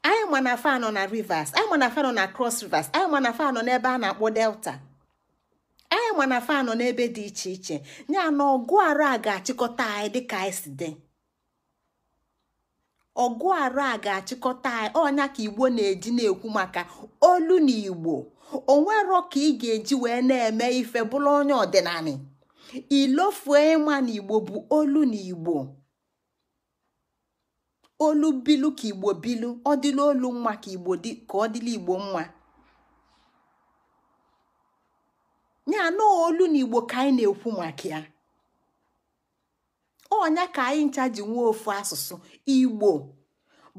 anyị ma na na rivers anyị mana na na cross rivers anyị ma na fanọ n'ebe a na-akpọ delta anyị ma na fanọ n'ebe dị iche iche ya na ọgụ arụ a ga-achịkọta anyị dịka anyị si dị ọgụ arụ a ga-achịkọta anyị ọnya ka igbo na-eji na-ekwu maka olu na igbo onwero ka ị ga-eji wee na-eme ife bụrụ onye ọdịnala ilofue ịma na igbo bụ olu na igbo olu bilu ka igbo bilu ọ dịla olu mma ka igbo dị ka ọ dịla igbo mma ya anọ olu na igbo ka anyị na-ekwu maka ya ọnya ka anyị ncha ji nwee ofu asụsụ igbo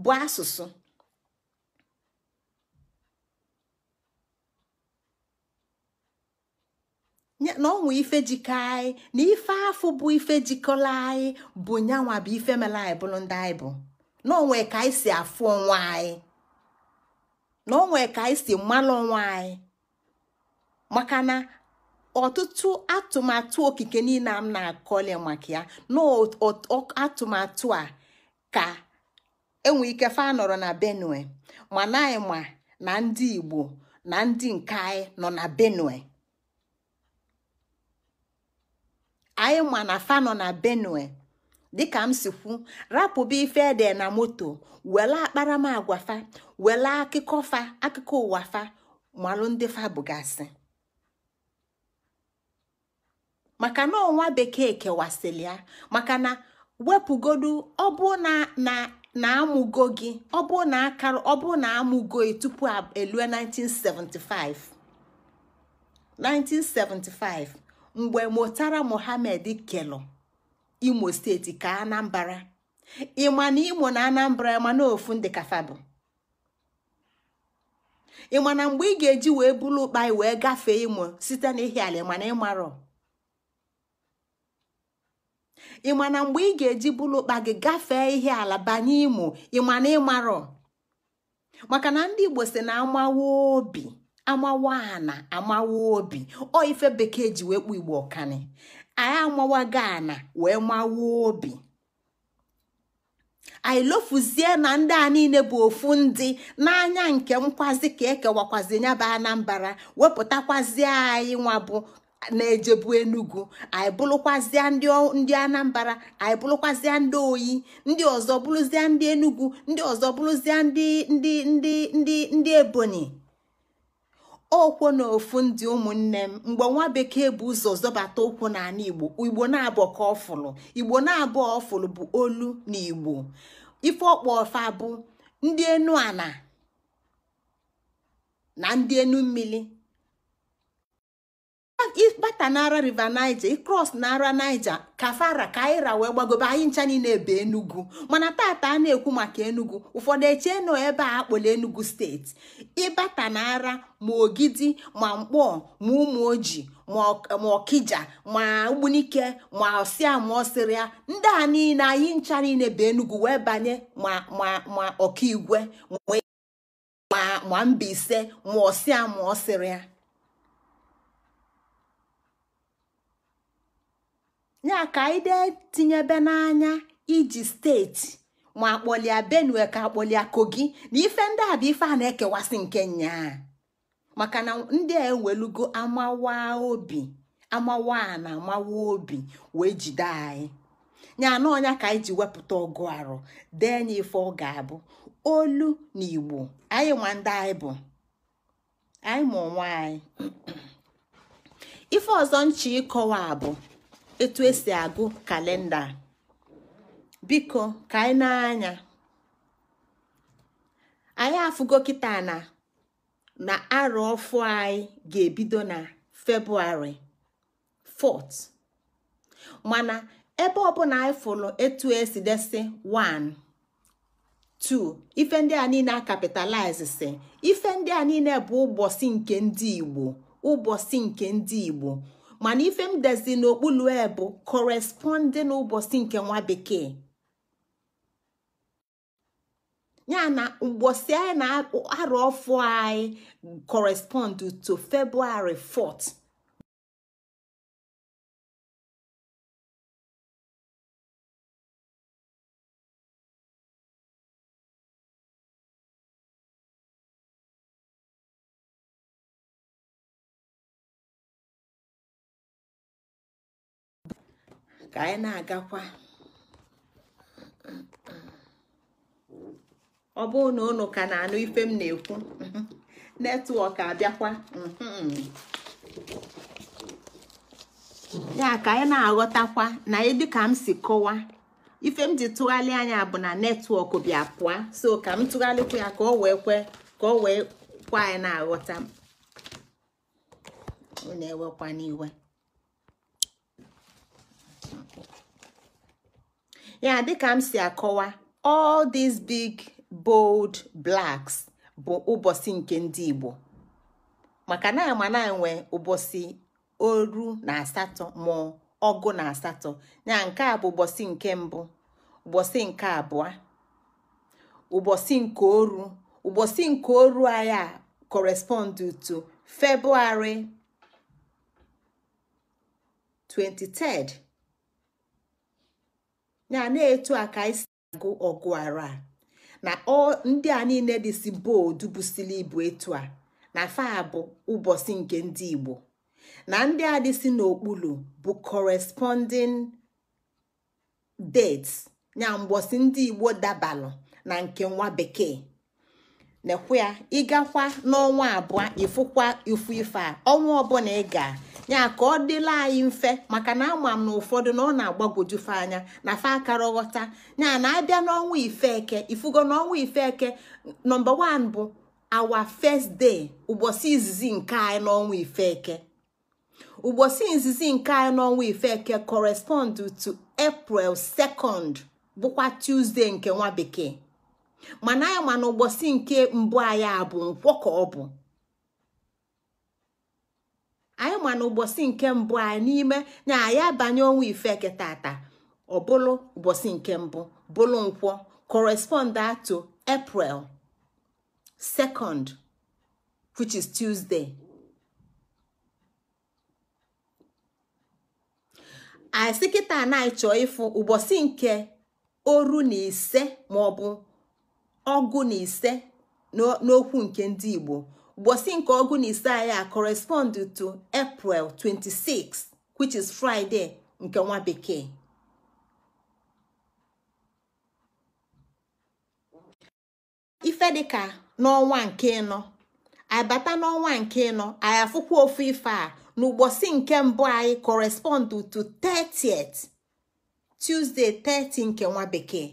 bụ asụsụ na ọnwa ife jikọ anyị na ife afụ bụ ife jikọla anyị bụ nyanwa bụ ife mela anyị bụrụ ndị anyị bụ na ka anyị si afụ onwe anyị na onwe ka anyị si mmanụ onwe anyị maka na ọtụtụ atụmatụ okike niile m na-akọle maka ya na atụmatụ a ka enwe ike fa nọrọ na benue mana anyị ma na ndị igbo na ndị nke anyị nọ na benue anyị ma na nọ na benue dịka m si kwu rapụba ife ede na moto wela akparamagwa fa wela akụkọ fa akụkọ ụwa fa malụ ndị fa bụgasị maka na ọnwa bekee kewasịrị ya maka na wepụgodu ọbụ na na amụgo gị ọbụ na ọ ọbụ na amụgo gị tupu elue 1975 mgbe mụtara mohamed kelụ imo steeti ka anambra ịma na imo na anambra ịma na ofu ndị kafabụ ịma na mgbe ị ga-eji wee bulu ụkpai wee gafee imo site na ala ịma na ịmarọ ịma na mgbe ị ga-eji bulu ụkpa gị gafee ihe ala banye imo ịma na ịmarọ maka na ndị igbo si na amawa obi amawa ana amawa obi ọ bekee ji wee kpụ igbo ọkani anyị ga ana wee mawa obi anyị lofuzie na ndị a niile bụ ofu ndị n'anya nke nkwazi ka ekewakwazi nya bụ anambra wepụtakwazie anyị nwa bụ na-ejebu enugu anyị bụrụkwazịa ndị anambra anyị bụrụkwazịa ndị oyi ndị ọzọ bụrụzịa ndị enugu ndị ọzọ bụrụzịa ndị ndị ndị ndị ndị ebonyi okwo na ofu ndị ụmụnne m mgbe nwa bekee bụ ụzọ zọbata ụkwụ n'ala igbo igbo na-abụọ ka ọfụlụ igbo na-abụọ ọfụlụ bụ olu na igbo ife ọkpọ ọfa bụ ndị enu ala na ndị enu mmiri na n'ara river niger ịkros n'ara niger kafara kaira wee gbagobe anyị ncha niile ebe enugu mana tata a na-ekwu maka enugu ụfọdụ echee nọ ebe a akpọla enugu steeti ịbata n'ara ma ogidi ma mkpọ ma ụmụ ojii ma ọkija ma ugbunike ma ọsịa ma ọsịrịa ndị a niile anyị ncha niile bụ enugu wee banye ma ma ọkaigwe ma ma mbaise ma ọsịa ma ọsịrịa ya ka anyị dee tinyebe n'anya iji steeti ma akpọlia benue ka akpọlia kogi na ife ndị a bụ ife a na-ekewasị nke nnyaa maka na ndị a ewelugo amawa obi amawa na amawa obi wee jide anyị nya na ọnya ka anyị ji wepụta ọgụ arụ dee nya ife ọ ga-abụ olu na igbo anyị nwa ndị anyị bụ anyị ma onwe anyị ife ọzọ nche ịkọwa bụ etu esi agụ kalenda biko ka anyị na-anya anyị afụgo kịta na na arọ ọfụ anyị ga-ebido na februarị 4 mana ebe ọ bụla anyị fụrụ etu esi desi 1 2 ife ndị a niile a kapitalize si ife ndị a niile bụ ụbọchị nke ndị Igbo ụbọchị nke ndị Igbo mana ife m dezi n'okpulu e bụ corresponding ụbọchị nke nwa bekee ya na ụbọchị anyị na-arụ ọfụ anyị correspond to February 4 ka anyị na-agakwa ọ bụrụ na ụnụ ka na-anụ ife m na-ekwu netwọk abịakwa ya ka anyị na-aghọtakwa na dịka m si kọwa ife m ji tụgharị anya bụ na netwọk bịa pụa so ka m tụgharịkwa ya ka ọ wee ka o wee kwa anyị na-aghọta m na-ewekwa n'iwe ya dịka m si akọwa all these big bold blacks bụ ụbọchị nke ndị Igbo maka na ama na enwe ụbọchị oru na asatọ ma ọgụ na asatọ ya nke a bụ ụbọchị nke mbụ ụbọchị nke abụọ ụbọchị nke oru ụbọchị nke oru aya correspond to February 23 ya na-etu a ka anyị si agụ ọgụ ara na ndị a niile dị si boodu busili ibu etu a na faa bụ ụbọchị nke ndị Igbo na ndị a dị si n'okpuru bụ corresponding dates ya mgbọsị ndị Igbo dabalụ na nke nwa bekee nekwe ya ịgakwa n'ọnwa abụọ ịfụkwa ifu ife a ọnwa ọbụla ị ga. ya ka ọ dịla anyị mfe maka na ama m na ụfọdụ na ọ na-agbagwojufe anya na fe akara ghọta ya na abịa n'ọnwa ifeke ifugo n'ọnwa ifeke nọmba 1 bụ awa first dee ụbọchị izizi nke anyị n'ọnwa ifeke ụbọchị izizi nke anyị n'ọnwa ifeke correspond to april 2 bụkwa tuzdee nke nwa bekee mana anyị ma na ụbọchị nke mbụ anyị a bụ nkwọ ka ọ bụ anyị ma na ụbọchị nke mbụ anyị n'ime na anyị abanye ọnwa ifeke tata ọ bụlụ ụbọchị nke mbụ bụlụ nkwọ correspond to april 2nd which is tuesday anyị sị kịta anyị ịfụ ụbọchị nke oru na ise maọbụ ọgụ na ise n'okwu nke ndị igbo mbosi nke ọgụ na ise correspond to april 26 which is friday nke nwa bekee ife dịka n'ọnwa nke ịnọ abata n'ọnwa nke ịnọ anyị afụkwa ofu ife a n'ụbọchị nke mbụ anyị correspond to 30th Tuesday 30 nke nwa bekee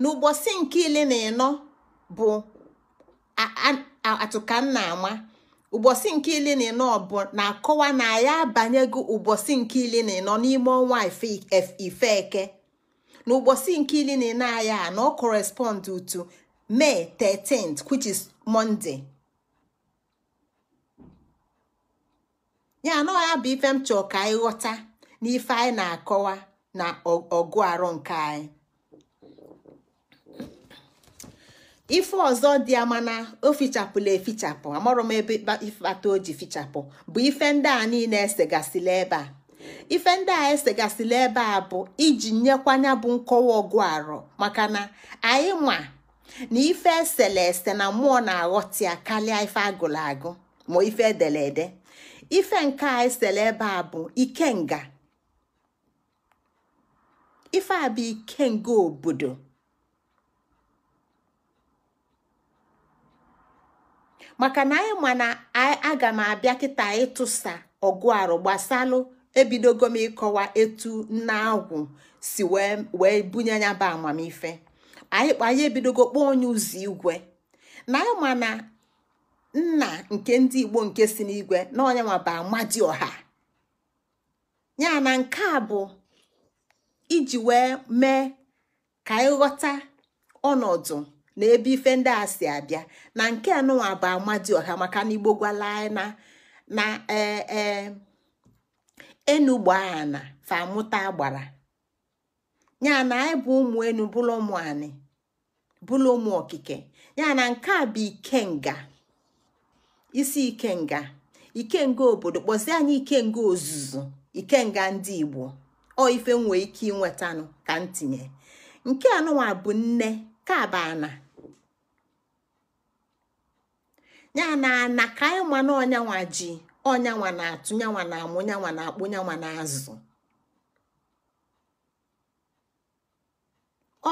n'ụbọchị nke ile na ịnọ bụ atụka m na-ama ụbọchị nke ile na ịnọ bụ na-akọwa na ya abanyego ụbọchị nke ile na ịnọ n'ime ọnwa ife eke na ụbọchị nke ile na aya na ọ correspond to May 13th which is Monday ya ife m ka anyị ghọta na anyị na-akọwa na ọgụ arọ nke anyị ife ọzọ dị ama na o fichapụla efichapụ amarọ m ebe ifebata o ji fichapụ bụ ife ndị a niile esegasịla ebe a ife ndị a esegasịla ebe a bụ iji nyekwanya bụ nkọwa ọgụ arọ maka na anyị ma na ife esele ese na mmụọ na-aghọta ya karịa ife agụrụ agụ ma ife edere ife nke a esele ebe a bụ ikenga ife a ikenga obodo maka na anyị ma na aga m abịa kịta ịtụsa ọgụarụ arụ gbasalụ ebidogo m ịkọwa etu nna agwụ si wee bunye ya bụ amamife anyị ebidogo kpọọ onye ụzọ igwe na anyị ma na nna nke ndị igbo nke si n'igwe na onye nwa bụ amadioha ya na nke a bụ iji wee mee ka anyị ghọta ọnọdụ na ebe ife ndị a si abịa na nke anụnwa bụ ọha maka na igbo gwala na na ee enugbaana famụta gbara ya na anyị bụ ụmụ enu bụlụ ụmụ anị bụlụ ụmụ okike ya na nke a bụ ikenga isi ikenga ikenga obodo kpọzie anyị ikenga ozuzu ikenga ndị igbo ọ ife nwee ike inwetanụ ka ntinye nke anụnwa bụ nne kabana ya na ana ka anyị ma na ọnyanwa ji ọnyanwa na-atụ nyanwa na amụ nyanwa na akpụ nyanwa na azụ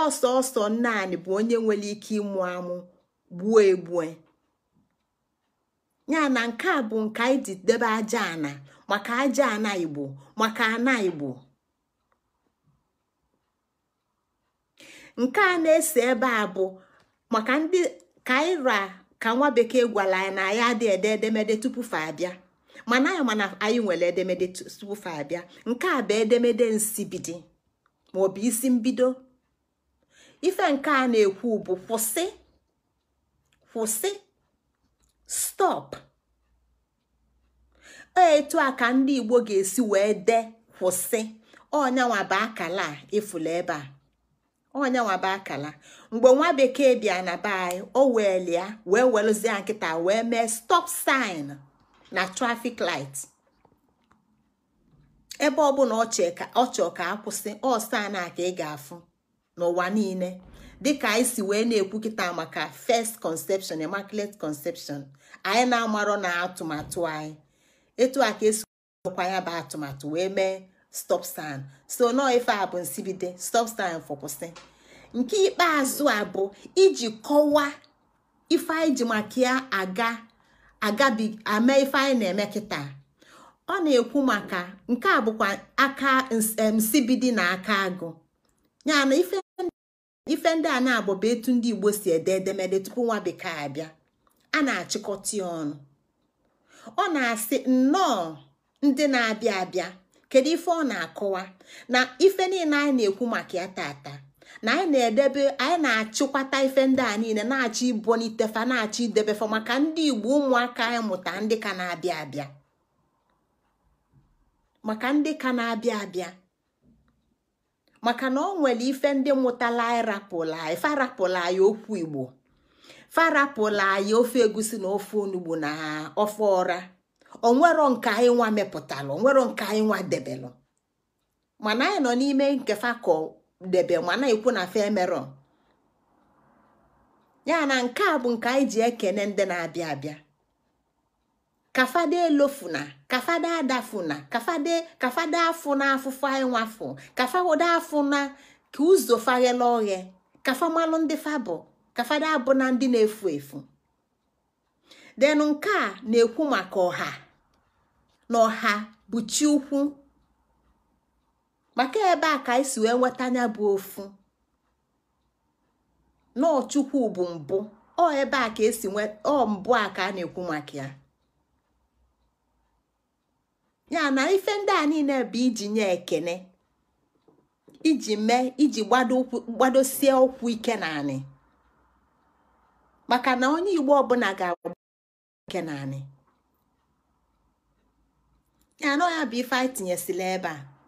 ọsọ ọsọ anyị bụ onye nwere ike ịmụ amụ gbuo egbue ya na nke a bụ nke anyị ji debe aja ana maka aja ana igbo maka ana igbo nke a na-ese ebe a bụ maka ndị kaira ka nwa bekee gwara anyị na anyị adịghị ede edemede tupu fa abịa mana anyị mana anyị nwere edemede tupu fa abịa nke a bụ edemede nsibidi maọbụ isi mbido ife nke a na-ekwu bụ kwụsị kwụsị stop etu a ka ndị igbo ga-esi wee dee kwụsị ọnyanwa akala a ịfụla ebe a akala mgbe nwa bekee bịa na be anyị o weelia wee welụzie nkịta wee mee stop sign na trafik light ebe ọbụla ọ chọ ka akwụsị ọ na ka ị ga-afụ n'ụwa niile dịka anyị si wee na-ekwukịta ekwu maka first conception immaculate conception anyị na-amarọ na atụmatụ anyị etu a ka esi kwa ya bụ atụmatụ wee mee stop sign so nọọ ife a bụ nsibide stop sign fọkwụsị nke ikpeazụ a bụ iji kọwaa ife anyị ji maka ya aga agabi ame ife anyị na-eme kịta ọ na-ekwu maka nke a bụkwa aka nsibidi na aka agụ ya na ife ndị a na agbọba etu ndị Igbo si ede edemede tupu nwa bekee abịa a na-achịkọta ya ọnụ ọ na-asị nnọọ ndị na-abịa abịa kedu ife ọ na-akọwa na ife niile anyị na-ekwu maka ya tata na anyị na-edebe anyị na-achịkwata ife ndị a niile na-achọ ibonitefa na-achọ idebefa maka ndị igbo ụmụaka anyị mụta ndị ka na-abịa abịa maka ndị ka na-abịa abịa maka na ọ nwere ife ndị mụtala ịrapụla anyị farapụla anyị okwu igbo farapụla anyị ofe egusi na ofe onugbo na ofe ọra onwero nke anyị nwa mepụtalụ onwero nke anyị nwa debelụ mana anyị nọ n'ime nkefa ka debe ma na-ekwu na femerọ ya na nke a bụ nke anyị ji ekene ndị na-abịa abịa kafade elofuna kafade adafuna kafade kafade afụ na afụfụ anyị nwafụ kafawode afụ na ka ụzọ faghela oghe kafamalụ ndị fabụ kafade abụ na ndị na-efu efu De nke na-ekwu maka ọha na ọha bụ chi ukwu maka ebe a ka anyị si wee nweta anya bụ ofu n'ọchukwu bụ mbụ ọ ebe a ka esi ọ mbụ a ka a na-ekwu maka ya ya na ife ndị a niile bụ iji nye ekene iji mee iji gbadosie ụkwụ ike naanị maka na onye igbo ọbụla ga-agba ike naanị ya na ọ bụ ife anyị tinyesila ebe a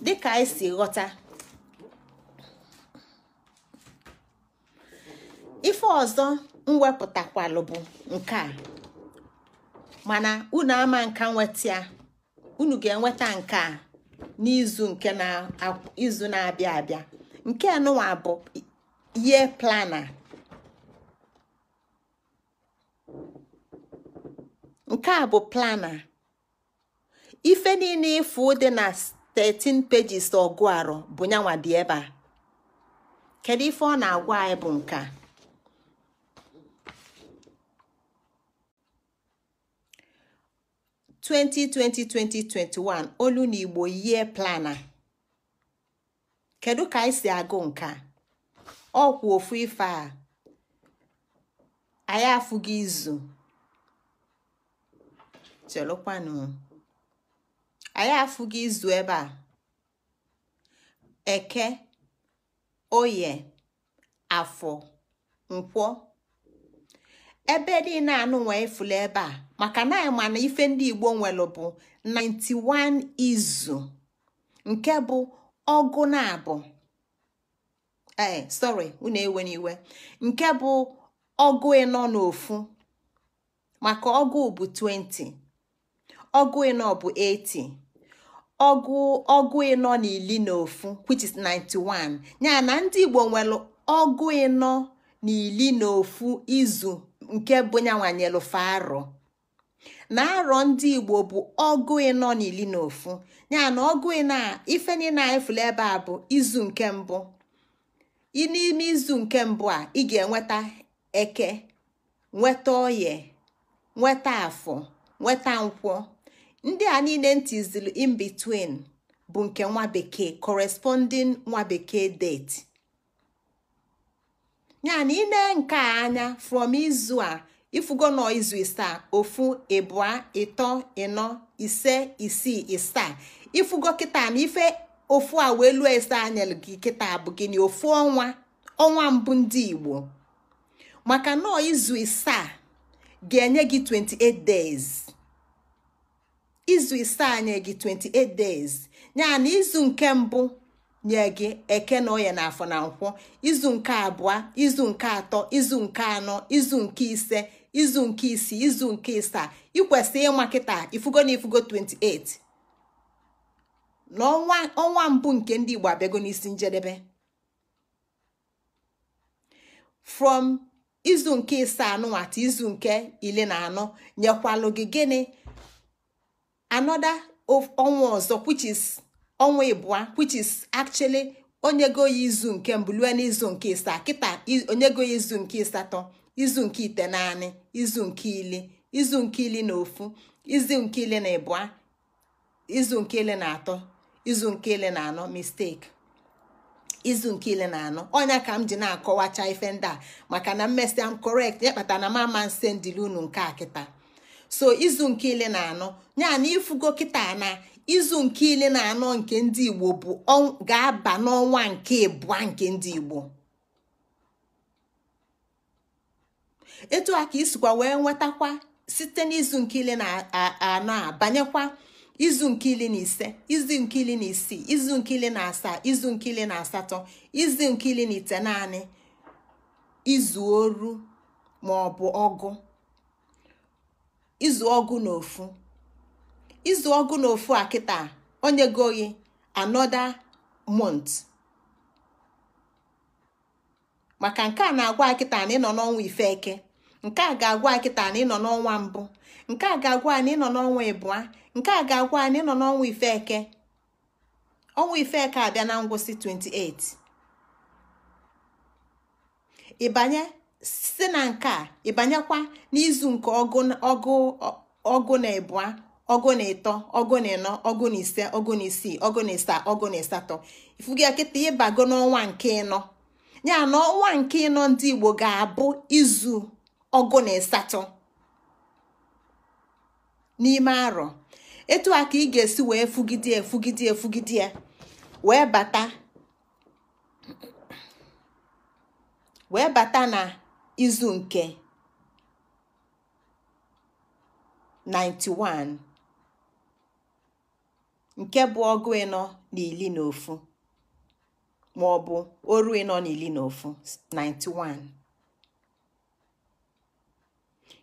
dịka anyị e si ghọta ife ọzọ mwepụtakwalụ bụ nke a mana unu ama nka nweta ya unu ga-enweta nke a n'izu nke na-izu na-abịa abịa nke nụwa bụ ihe plana nke a bụ plana ife niile ịfụ dị na 13 pages ọgụ arụ bụ nyanwa dị ebe a kedu ife ọ na-agwa anyị bụ nke (2020-2021) olu na igbo yie plana kedu ka anyị si agụ nke ọ kwụ ofu ife a anyị afụghị izu chelụkwanụ anyị afụghị izu ebe a eke oye afọ nkwọ ebe niile anụnwa efula ebe a maka na anyị ma na ife ndị igbo nwere bụ 91 izu nke bụ ọgụ na abụ ee sorry unu ewe n'iwe nke bụ ọgụ ịnọ n'ofu maka ọgụ bụ 20 ọgụ ịnọ bụ 80 ọgụ ọgụ ịnọ na ili na ofu which is 91 nya na ndị igbo nwere ọgụ ịnọ na ili na ofu izu nke bụ nyanwanyelu faro na arọ ndị igbo bụ ọgụ ịnọ na ili na ofu ya na ọgụ ịnọ a ife niile anyị fụrụ ebe a bụ izu nke mbụ n'ime izu nke mbụ a ị ga-enweta eke nweta oye nweta afọ nweta nkwọ ndị a niile ntizili in between bụ nke nwa bekee corresponding nwa bekee date ya na ile nke a anya from izu a ifugo nọ izu isaa ofu ịbụa ịtọ ịnọ ise isii isaa ifugo kịta na ife ofu a wee lụọ ise anya gị kịta bụ gịnị ofu ọnwa ọnwa mbụ ndị igbo maka nọ izu isaa ga-enye gị 28 days. izu ise anya gị 28 days ya na izu nke mbụ nye gị eke na oya na afọ na nkwụ izu nke abụọ izu nke atọ izu nke anọ izu nke ise izu nke isii izu nke ịsaa ikwesị ịma kịta ifugo na ifugo 28 na ọnwa mbụ nke ndị Igbo abịago n'isi njedebe from izu nke ịsaa anụnwata izu nke ile na anọ nyekwalụ gị gịnị another ọnwa ọzọ which ọnwa ịbụa which is actually onyego ya izu nke mbụ lue n'izu nke isaa kịta onyego ya izu nke ịsatọ izu nke ite naanị izu nke ili izu nke ili na ofu izu nke ili na ịbụa izu nke ili na atọ izu nke ili na anọ mistake izu nke ile na anọ ọnya ka m ji na-akọwacha ife ndị a maka na mmesịa m correct ya kpatara na m ama nse ndili unu nke a kịta so izu nke ile na anọ ya na ifugo kịta na izu nke ile na anọ nke ndị igbo bụ ga-aba n'ọnwa nke ịbụa nke ndị igbo etu a ka isikwa wee nwetakwa site n'izu nke ile na anọ a banyekwa izu nke ile na ise izu nke ile na isii izu nke ile na asaa izu nke ile na asatọ izu nke ile na ite naanị izu oru ma ọgụ izu ọgụ na ofu izu ọgụ na ofu a kịta onye goyi anoda mont maka nke a na-agwa akịta na ịnọ n'ọnwa ifeke nke a ga-agwa akịta na ịnọ n'ọnwa mbụ nke a ga-agwa na ịnọ n'ọnwa ịbụa nke a ga-agwa na ịnọ n'ọnwa ifeke ọnwa ifeke abịa na ngwụsị 28 ịbanye site na nke a ịbanyekwa n'izu nke ọgụ na ịbụa ọgụ na ịtọ ọgụ na ịnọ ọgụ na ise ọgụ na isii ọgụ na ịsaa ọgụ na ịsatọ ifugi akịta ịbago n'ọnwa nke ịnọ ya na ọnwa nke ịnọ ndị Igbo ga-abụ izu ọgụ na ịsatọ n'ime arọ etu a ka ị ga-esi wee fugide efugide efugide ya wee bata wee bata na izu nke 91 nke bụ ọgụ ịnọ na na ofu ma ọ bụ oru ịnọ na na ofu 91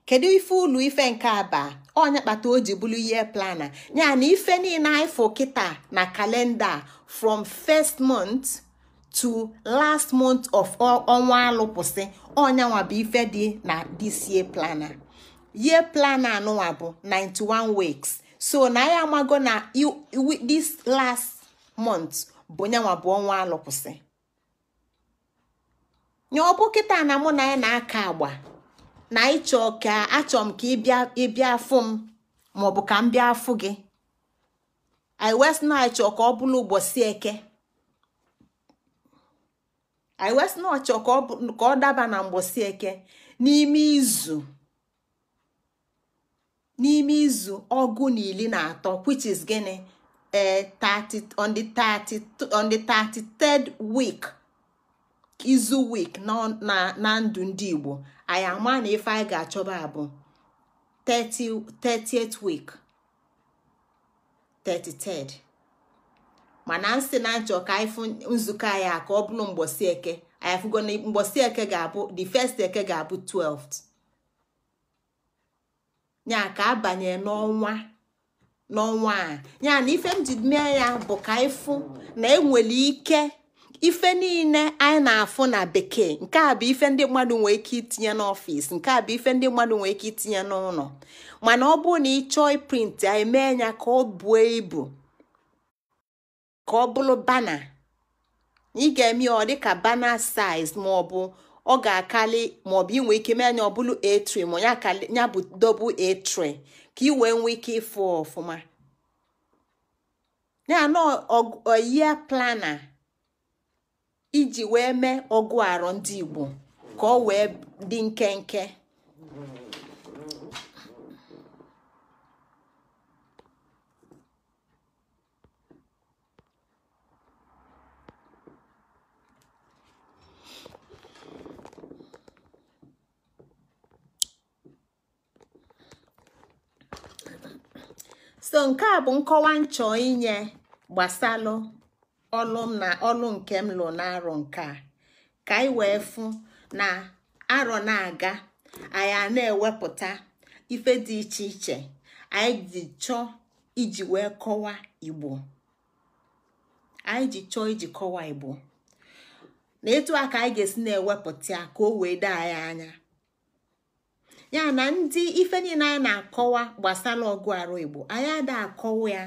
kedu ife ụlọ ife nke aba ọnya kpata o ji bụrụ ihe plana ya na ife niile anyị fụ kịta na kalenda from first month to last month of ọnwa alụpụsị ọnyanwa bụ ife dị na this year planner year planner anụnwa bụ 91 weeks so na ya amago na this last month bụ nyanwa bụ ọnwa alụpụsị nye ọbụ kịta na mụ na ya na-aka agba na ịchọ ka achọ m ka ịbịa afụ m maọbụ ka m bịa afụ gị i wes na ịchọ ka ọ bụrụ ụbọchị eke anyị wee sị na ọchọ ka ọ daba na mgbọsi eke n'ime izu n'ime izu ọgụ na na atọ which is gịnị 30 eh, on the 33rd week izu week na ndụ ndị Igbo anyị ama na ife anyị ga-achọba abụ 30th week 33rd mana nsị na nchọ ka anyị fụ nzukọ anyị a ka ọ bụrụ mgbọsị eke anyị afụgo na eke ga-abụ the first eke ga-abụ 12 nya ka abanye n'ọnwa n'ọnwa a ya na ife m ji mee ya bụ ka anyị fụ na enwere ike ife niile anyị na-afụ na bekee nke a bụ ife ndị mmadụ nwee ike itinye n'ọfịs nke a bụ ife ndị mmadụ nwee ike itinye n'ụlọ mana ọ bụrụ na ị chọọ print anyị mee ya ka ọ buo ibu ka ọ bụrụ bana ị ga-eme ọ dịka bana saiz maọbụ ọ ga-akali maọbụ inwe ike mee anya ọ bụrụ etri ma ya bụ dobu etri ka ị wee nwee ike ịfụ ọfụma ya na oyie plana iji wee mee ọgụ arọ ndị Igbo ka ọ wee dị nkenke so nke a bụ nkọwa nchọ inye gbasalụ ọlụ na ọlụ nke m lụ na-arọ nke a ka anyị wee fụ na arọ na-aga anyị a na-ewepụta ife dị iche iche anyị ji chọọ iji wee kọwa igbo na etu a ka anyị ga-esi na-ewepụta ya ka o wee daa anyị anya ya na ndị ife niile a na-akọwa gbasara ọgụ arụ igbo anyị ada akọwa ya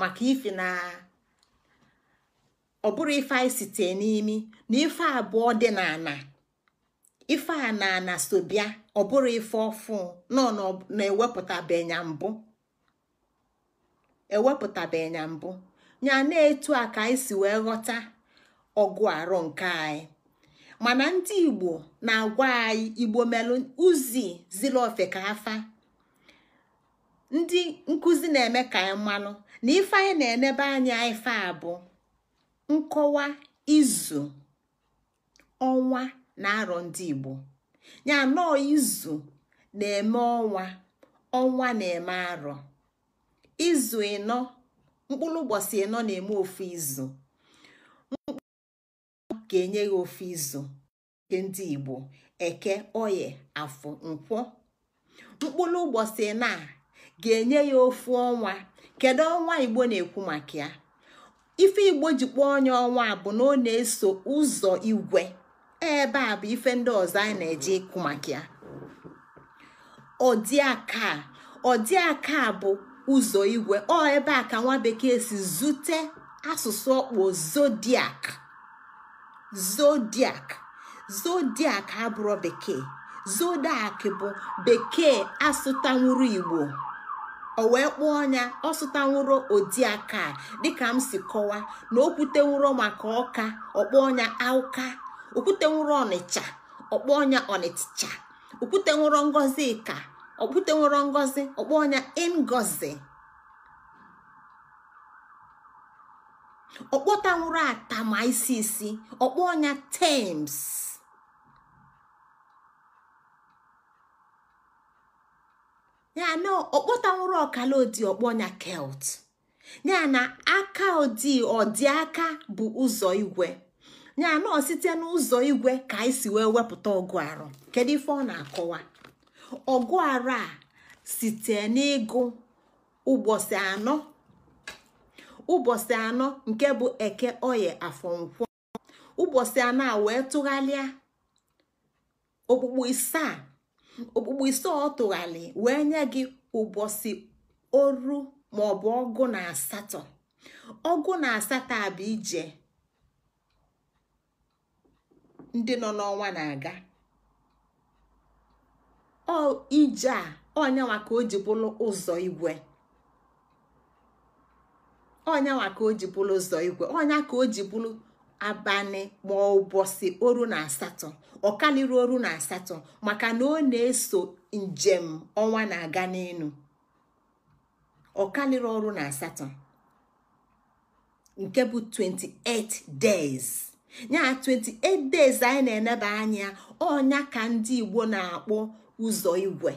maka ife na ọ bụrụ ife anyị site n'imi na ife abụọ dị n'ana ife a na ana sobia ọ bụrụ ife ọfụ nọ na-ewepụtabenya mbụ ewepụtabenya mbụ ya na-etu a ka anyị si wee ghọta ọgụ arụ nke anyị mana ndị igbo na-agwa anyị igbo melụ uzi ziri ofe ka afa ndị nkụzi na-eme ka anyị mmanụ na ife na-enebe anya ife abụ nkọwa izu ọnwa na arọ ndị igbo ya nọọ izu na-eme ọnwa ọnwa na-eme arọ izu ịnọ mkpụrụ ụbọchị ịnọ na-eme ofu izu ka enye ya ofe izu nke ndị igbo eke oye afọ nkwọ mkpụrụ ụbọchị na ga-enye ya ofu ọnwa kedu ọnwa igbo na-ekwu maka ya ife igbo ji kpọọ onye ọnwa bụ na ọ na-eso ụzọ igwe ebe a bụ ife ndị ọzọ anyị na-eje ịkụ maka ya ọdịaka ọdịaka bụ ụzọ igwe ọ ebe a ka nwa bekee si zute asụsụ ọkpọ zodiac zodiac zodiac abụrụ bekee zodiac bụ bekee asụtanwuru igbo o wee kpọọ ọnya ọsụtanwuro odiaka dịka m si kọwa na okwutenwuro maka ọka ọkpọ ọnya auka okwutenwuro ọnịcha ọkpọ ọnya ọnịcha okwutenwuro ngozi ka okwutenwuro ngozi ọkpọ ngozi ọkpọtanwụrụ atama isi isi ọkpọ ọnya tems ya na ọkpọtanwụrụ ọkala odi ọkpọ ọnya kelt ya na aka odi ọdịaka bụ ụzọ igwe ya na ọ site n'ụzọ igwe ka anyị si wee wepụta ọgụ arụ kedu ife ọ na-akọwa ọgụ arụ a site n'ịgụ ụbọchị anọ ụbọchị anọ nke bụ eke oye afọ nkwọ ụbọchị anọ a wee tụgharịa okpukpu isaa okpukpu isaa ọ tụgharị wee nye gị ụbọchị oru maọbụ ọgụ na asatọ ọgụ na asatọ a bụ ije ndị nọ n'ọnwa na-aga ọ ije a onye ka o ji bụrụ ụzọ igwe ọnyanwa ka o ji bụrụ ụzọ igwe ọnya ka o ji bụrụ abalị ma ụbọchị oru na asatọ ọkalịrị oru na asatọ maka na ọ na-eso njem ọnwa na-aga n'elu ọkalịrị ọrụ na asatọ nke bụ 28 days ya 28 days anyị na-eneba anya ọnya ka ndị Igbo na-akpọ ụzọ igwe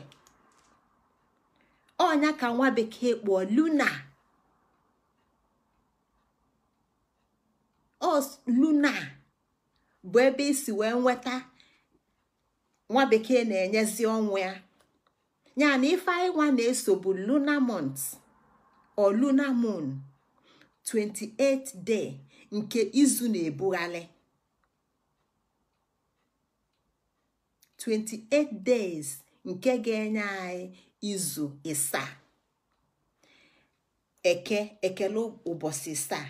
ọnya ka nwa bekee luna os luna bụ ebe isi wee nweta nwa bekee na-enyezi ọnwụ ya ya na ife anyị nwa na-eso bụ luna mont o luna moon 28 day nke izu na-ebugharị 28 days nke ga-enye anyị izu ịsaa eke ekele ụbọchị ịsaa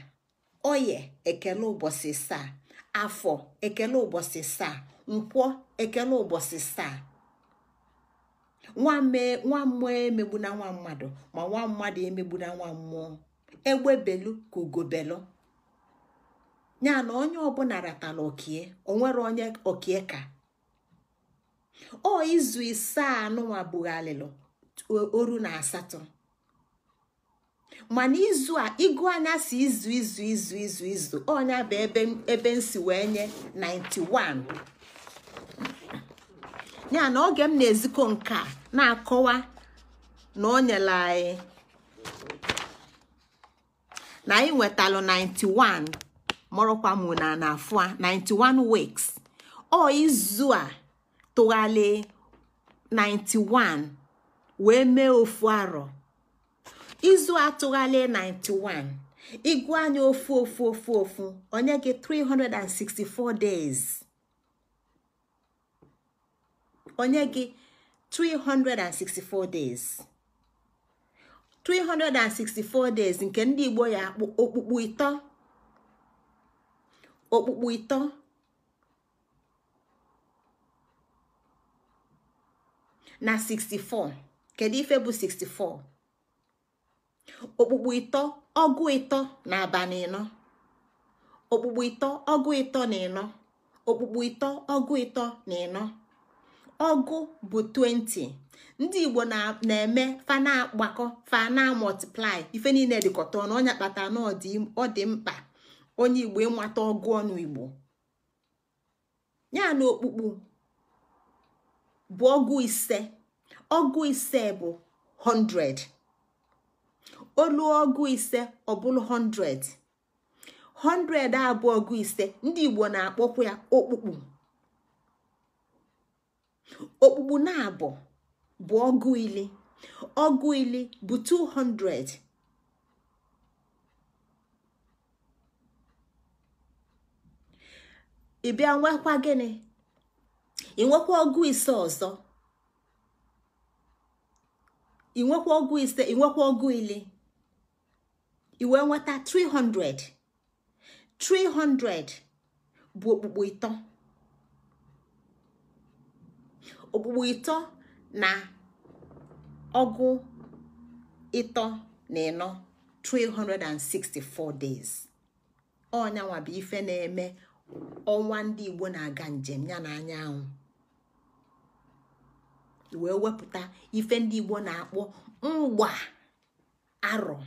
oye ekele ụbọchị saa afọ ekele ụbọchị saa nkwọ ekele ụbọchị saa nwa mmụọ emegbu na nwa mmadụ ma nwa mmadụ emegbu na nwa mmụọ egbebelu ka ugobelu ya na onye ọbụla ratala okie onwere onye okie ka o izu isaa anụnwa alịlọ oru na asatọ mana izu a ịgụ anya si izu izu izu izu izu ọnya bụ ebe ebe nsi wee nye 91 ya na oge m na-ezikọ nke a na-akọwa na o nyere anyị na anyị nwetalụ 91 mụrụkwa mụ na na a 91 weeks ọ izu a tụgharị 91 wee mee ofu arọ izu atụghalị 91 ịgụ anya ofu ofu ofu ofu onye gị 364 days onye gị 364 days 364 days nke ndị Igbo ya okpukpu ịtọ okpukpu ịtọ na 64 kedu ife bụ 64 okpukpu ịtọ ọgụ ịtọ na abalị ịnọ okpukpu ịtọ ọgụ ịtọ na ịnọ okpukpu ịtọ ọgụ ịtọ na ịnọ ọgụ bụ 20 ndị igbo na-eme fa na-agbakọ fa na-amọtiplai ife niile dịkọta ọnụ onye kpata na ọ dị mkpa onye igbo ịmata ọgụ ọnụ igbo ya na okpukpu bụ ọgụ ise ọgụ ise bụ 100 olu ọgụ ise ọ bụrụ 100 100 bụ ọgụ ise ndị Igbo na-akpọkwa ya okpukpu okpukpu na-abụ bụ ọgụ ili ọgụ ili bụ 200 ị bịa nwekwa gịnị ị nwekwa ọgụ ise ọzọ ị nwekwa ọgụ ise ị nwekwa ọgụ ili wee nweta 300 300 bụ okpukpo ịtọ okpukpo ịtọ na ọgụ ịtọ na ịnọ 364 days ọnyanwa bụ ife na-eme ọnwa ndị Igbo na-aga njem ya na anyanwụ wee wepụta ife ndị Igbo na-akpọ mgba arọ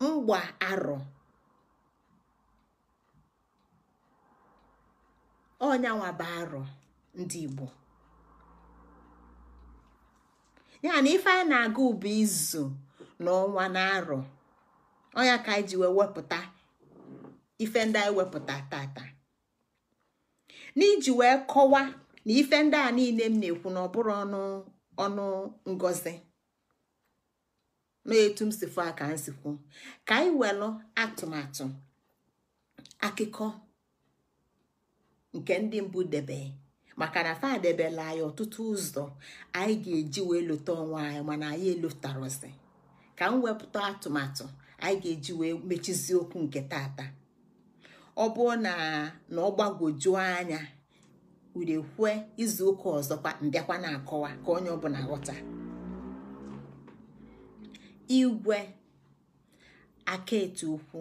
mgba arọ ọnyanwa bụ arọ ndị Igbo ya na ife a na-aga ubi izu na ọnwa na arọ ọnya ka anyị ji wee wepụta ife ndị anyị wepụta tata n'iji wee kọwa na ife ndị a niile m na-ekwu na ọ bụrụ ọnụ ọnụ ngozi na-etu m si fụ aka m si kwuo ka anyị welụ atụmatụ akụkọ nke ndị mbụ debe maka na fa debela anyị ọtụtụ ụzọ anyị ga-eji wee lota onwe anyị mana anyị elotarozi ka m wepụta atụmatụ anyị ga-eji wee mechizi okwu nke tata ọ bụrụ na na ọ gbagwojuo anya urekwue izu ụka ọzọ mbịakwa na-akọwa ka onye ọbụla ghọta igwe àkaètù ukwu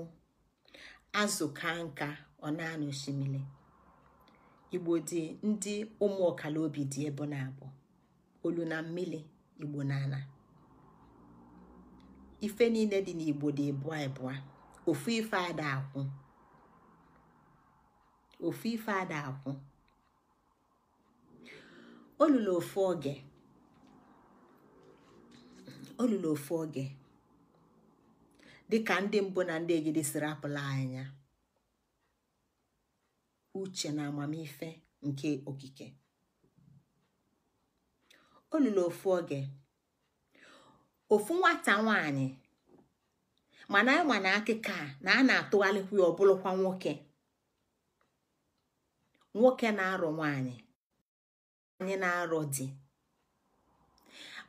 azụ̀ kaa nka ọ na n'òshìmìlì ìgbò dị ndị ụmụ ọkala obi dị ebe na-abọ̀ olu na igbo na n'ala ife niile dị n'igbo dị ịbụa ịbụa ofu ife ada akwụ ofu ife ada akwụ olulu ofu oge olulu ofu oge dịka ndị mbụ na ndị egide siri apụla anya uche na amamife nke okike olulu ofu oge ofu nwata nwanyị mana ịma na akịka na a na atụgharịkwu ya ọbụlụkwa nwoke nwoke na-arọ nwanyị nwanyị na-arọ di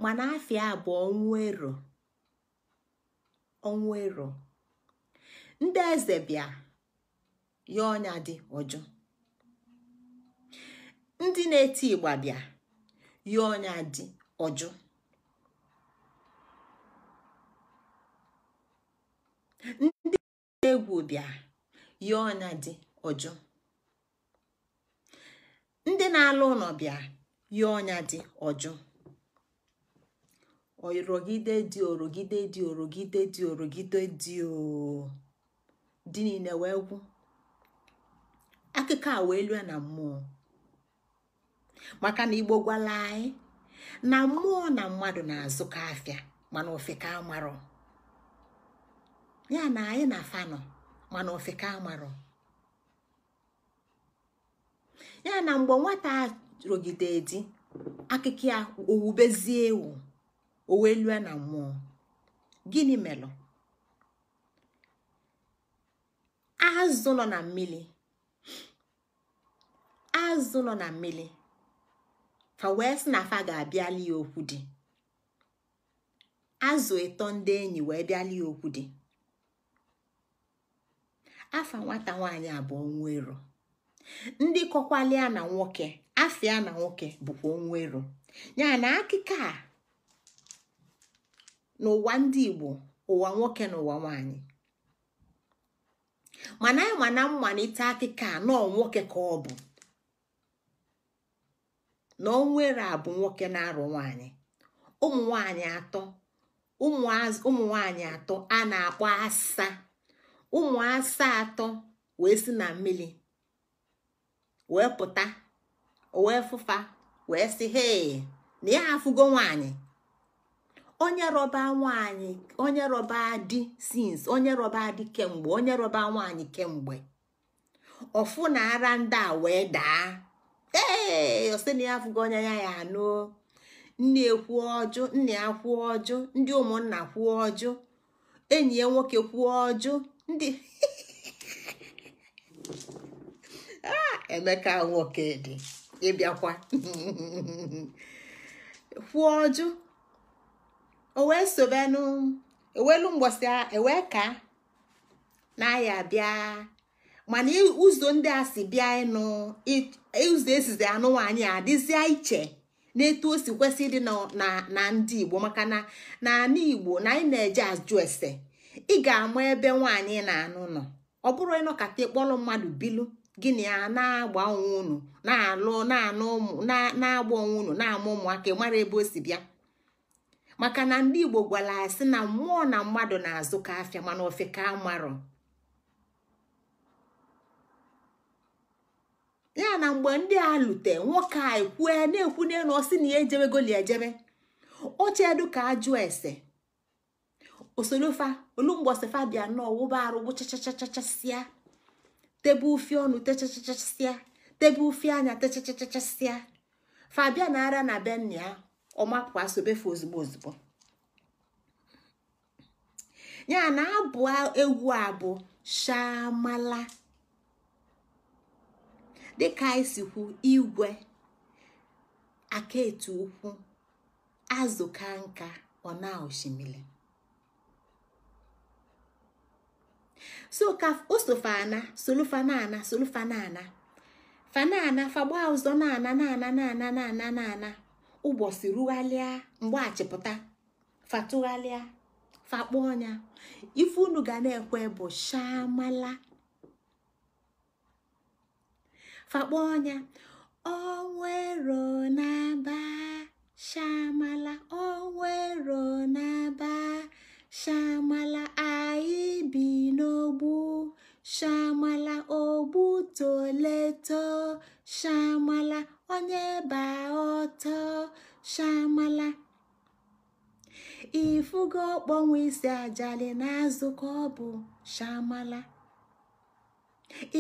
mana afịa abụọ nwa ero ọnwa ero ndị eze bịa ya ọnya dị ọjụ ndị na-eti ịgba bịa ya ọnya dị ọjụ ndị egwu bịa ya ọnya dị ọjụ ndị na-alụ ụlọ bịa ya ọnya dị ọjụ orogide dị orogide dị orogide dị orogide dị dị niile wee gwụ akụkọ a wee lue na mmụọ maka na igbo gwala anyị na mmụọ na mmadụ na-azụkọ afịa mana ofeka amarọ ya na anyị na fanọ mana ofeka amarọ ya na mgbe nwata rogide di a owubezie ewu o wee lue na mmụọ gịnị melụ azụ nọ na mmiri azụ nọ na mmiri fa wee sị na fa ga-abịali ya okwu dị azụ ịtọ ndị enyi wee bịali ya okwu dị afa nwata nwaanyị abụọ nwa ero ndị kọkwalịa na nwoke afịa na nwoke bụkwa onwa ero a n'ụwa ndị igbo ụwa nwoke na ụwa nwanyị mana anyị na mmalite akụkọ anọ nwoke ka ọ bụ na onwere abụ nwoke na-arụ nwanyị ụmụ nwanyị atọ a na-akpọ asa ụmụ asa atọ wee si na mmiri wee pụta wee fụfa wee si hee na ya afụgo nwanyị onye rọba nwaanyị onye rọba di sins onye rọba di kemgbe onye rọba nwaanyị kemgbe ọfụ na ara ndị a wee daa ee ọsị na ya afụgo onye ya ya anụ nne kwuo ọjụ nna ya kwuo ọjụ ndị ụmụnna kwuo ọjụ enyi ya nwoke kwuo ọjụ ndị ah, emeka nwoke dị ịbịakwa kwuo ọjụ o wee sobenu ewelu mgbọsị ewee ka na ya bịa mana ụzọ ndị a si bịa ịnụ ụzọ esizi anụnwa anyị adịzịa iche na-etu osi kwesị ịdị na ndị igbo maka na anụ igbo na anyị na-eje ajụ ese ị ga-ama ebe nwaanyị na-anụ nọ ọ bụrụ ịnọkata ịkpọrọ mmadụ bilu gịnị ya na-agba onwe unu na-alụ na-anụ ụmụ na-agba onwe unu na-ama ụmụaka mara ebe o si bịa maka na ndị igbo gwara ya sị na mmụọ na mmadụ na-azụ ka afịa mana ofe ka amarọ ya na mgbe ndị a lute nwoke a ekwue na ekwu na ọsị na ya ejebe goli ejebe ochedu ka ajụ ese osolofa olumgbosifa bịa nọọ wụba arụ gbuchachachachasịa tebe ufi ọnụ techachachasịa tebe ufi anya techachachasịa fabia na ara na benna ya ọ asobefe ozugbo ozugbo ya na abụ egwu abụ bụ shamala dịka isikwu igwe aka igwe akaetu ukwu azụ nka ọ na osimiri so ka osofana solufanana solufanana fanana fagba ụzọ na ana na ana na ana na ana na ana ụbọchị rugharịa mgbe achịpụta fatụgharịa fakpọ ọnya ife unu ga na-ekwe bụ shamala fakpọ ọnya onwero n'aba shamala onwero n'aba shamala anyị bi n'ogbu shamala ogbu toleto shamala onye baa ọtọ shamala ifugo ọkpọnwụ isi ajali na-azụ ka ọ bụ shamala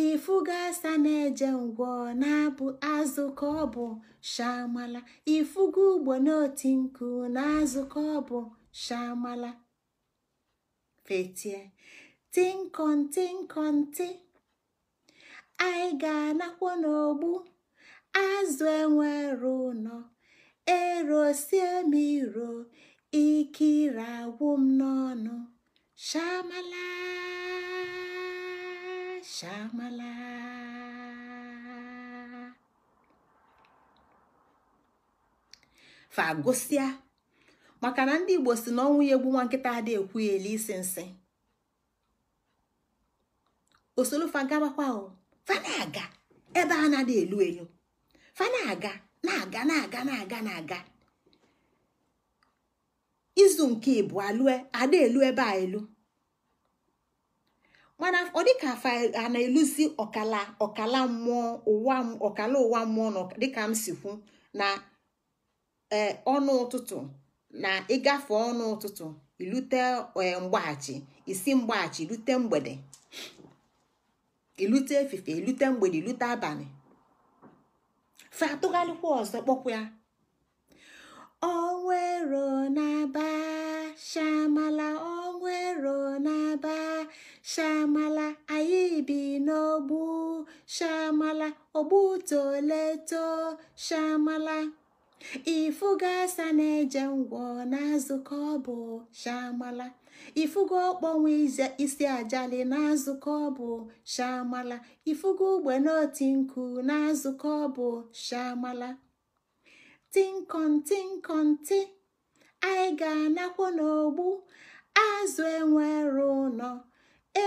ifugo asa na-eje ngwọ na-abụ azụ ka ọ bụ shamala ifugo ugbo n'oti nku na azụkọ ka ọ bụ shamala fetie tinkọntinkọnti anyị ga-anakwo n'ogbu azụ enwero ụnọ erosie m iro ike agwụ m n'ọnụ shamala shamala fa maka na ndị igbo si na ọnwụ ya egbu nwa nkịta adị ekwu ya ele isi nsị osolufa gabakwa fa na-aga ebe a na-adị elu elu fa na-aga na-aga na-aga na-aga na-aga izu nke ịbụ alụe ada elu ebe a elu mana ọ dịka afa a na-eluzi ọkala ọkala mmụọ ụwa ọkala ụwa mmụọ dịka m si kwu na e, ọnụ ụtụtụ na ịgafe ọnụ ụtụtụ ilute e, mgbaghachi isi mgbaghachi ilute mgbede ilute efife ilute mgbede ilute abalị fa atụghalịkwa ọzọ kpọkwa ya ọnwero na-aba shamala ọnwero na shamala anyị bi n'ogbu shamala ogbu toleto shamala ifu gasa na-eje ngwọ n'azụ ka ọ bụ shamala ifugo ọkpọnwe isi ajali na-azụkọ ọbụ shamala ifugo ogbene nku na-azụkọ ọbụ shamala tinkọntinkọnti anyị ga anakwụ n'ogbu azụ enwere ụlọ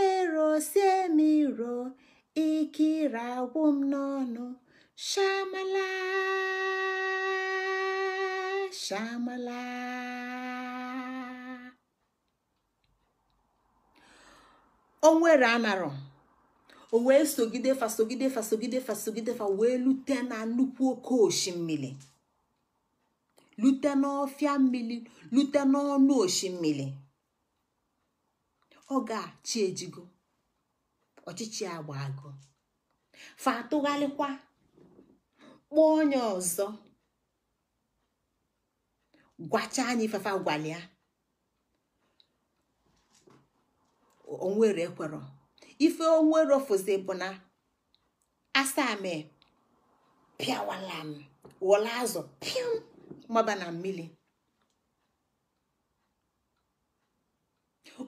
erosiemiro ikire agwụ m n'ọnụ shamala shamala onwere anarọ o wee sogide fasogide fasogide fasogide fa wee lute na nnukwu oke osimiri lute n'ọfịa mmiri lute n'ọnụ osimiri ọ ga-achị ejigo ọchịchị agba agụ fa atụgharịkwa kpọọ onye ọzọ gwacha anyị fafa gwalịa onwere kwero ife onwere fụzi bụ na asaa me pịawala m wọla azụ pịam maba na mmiri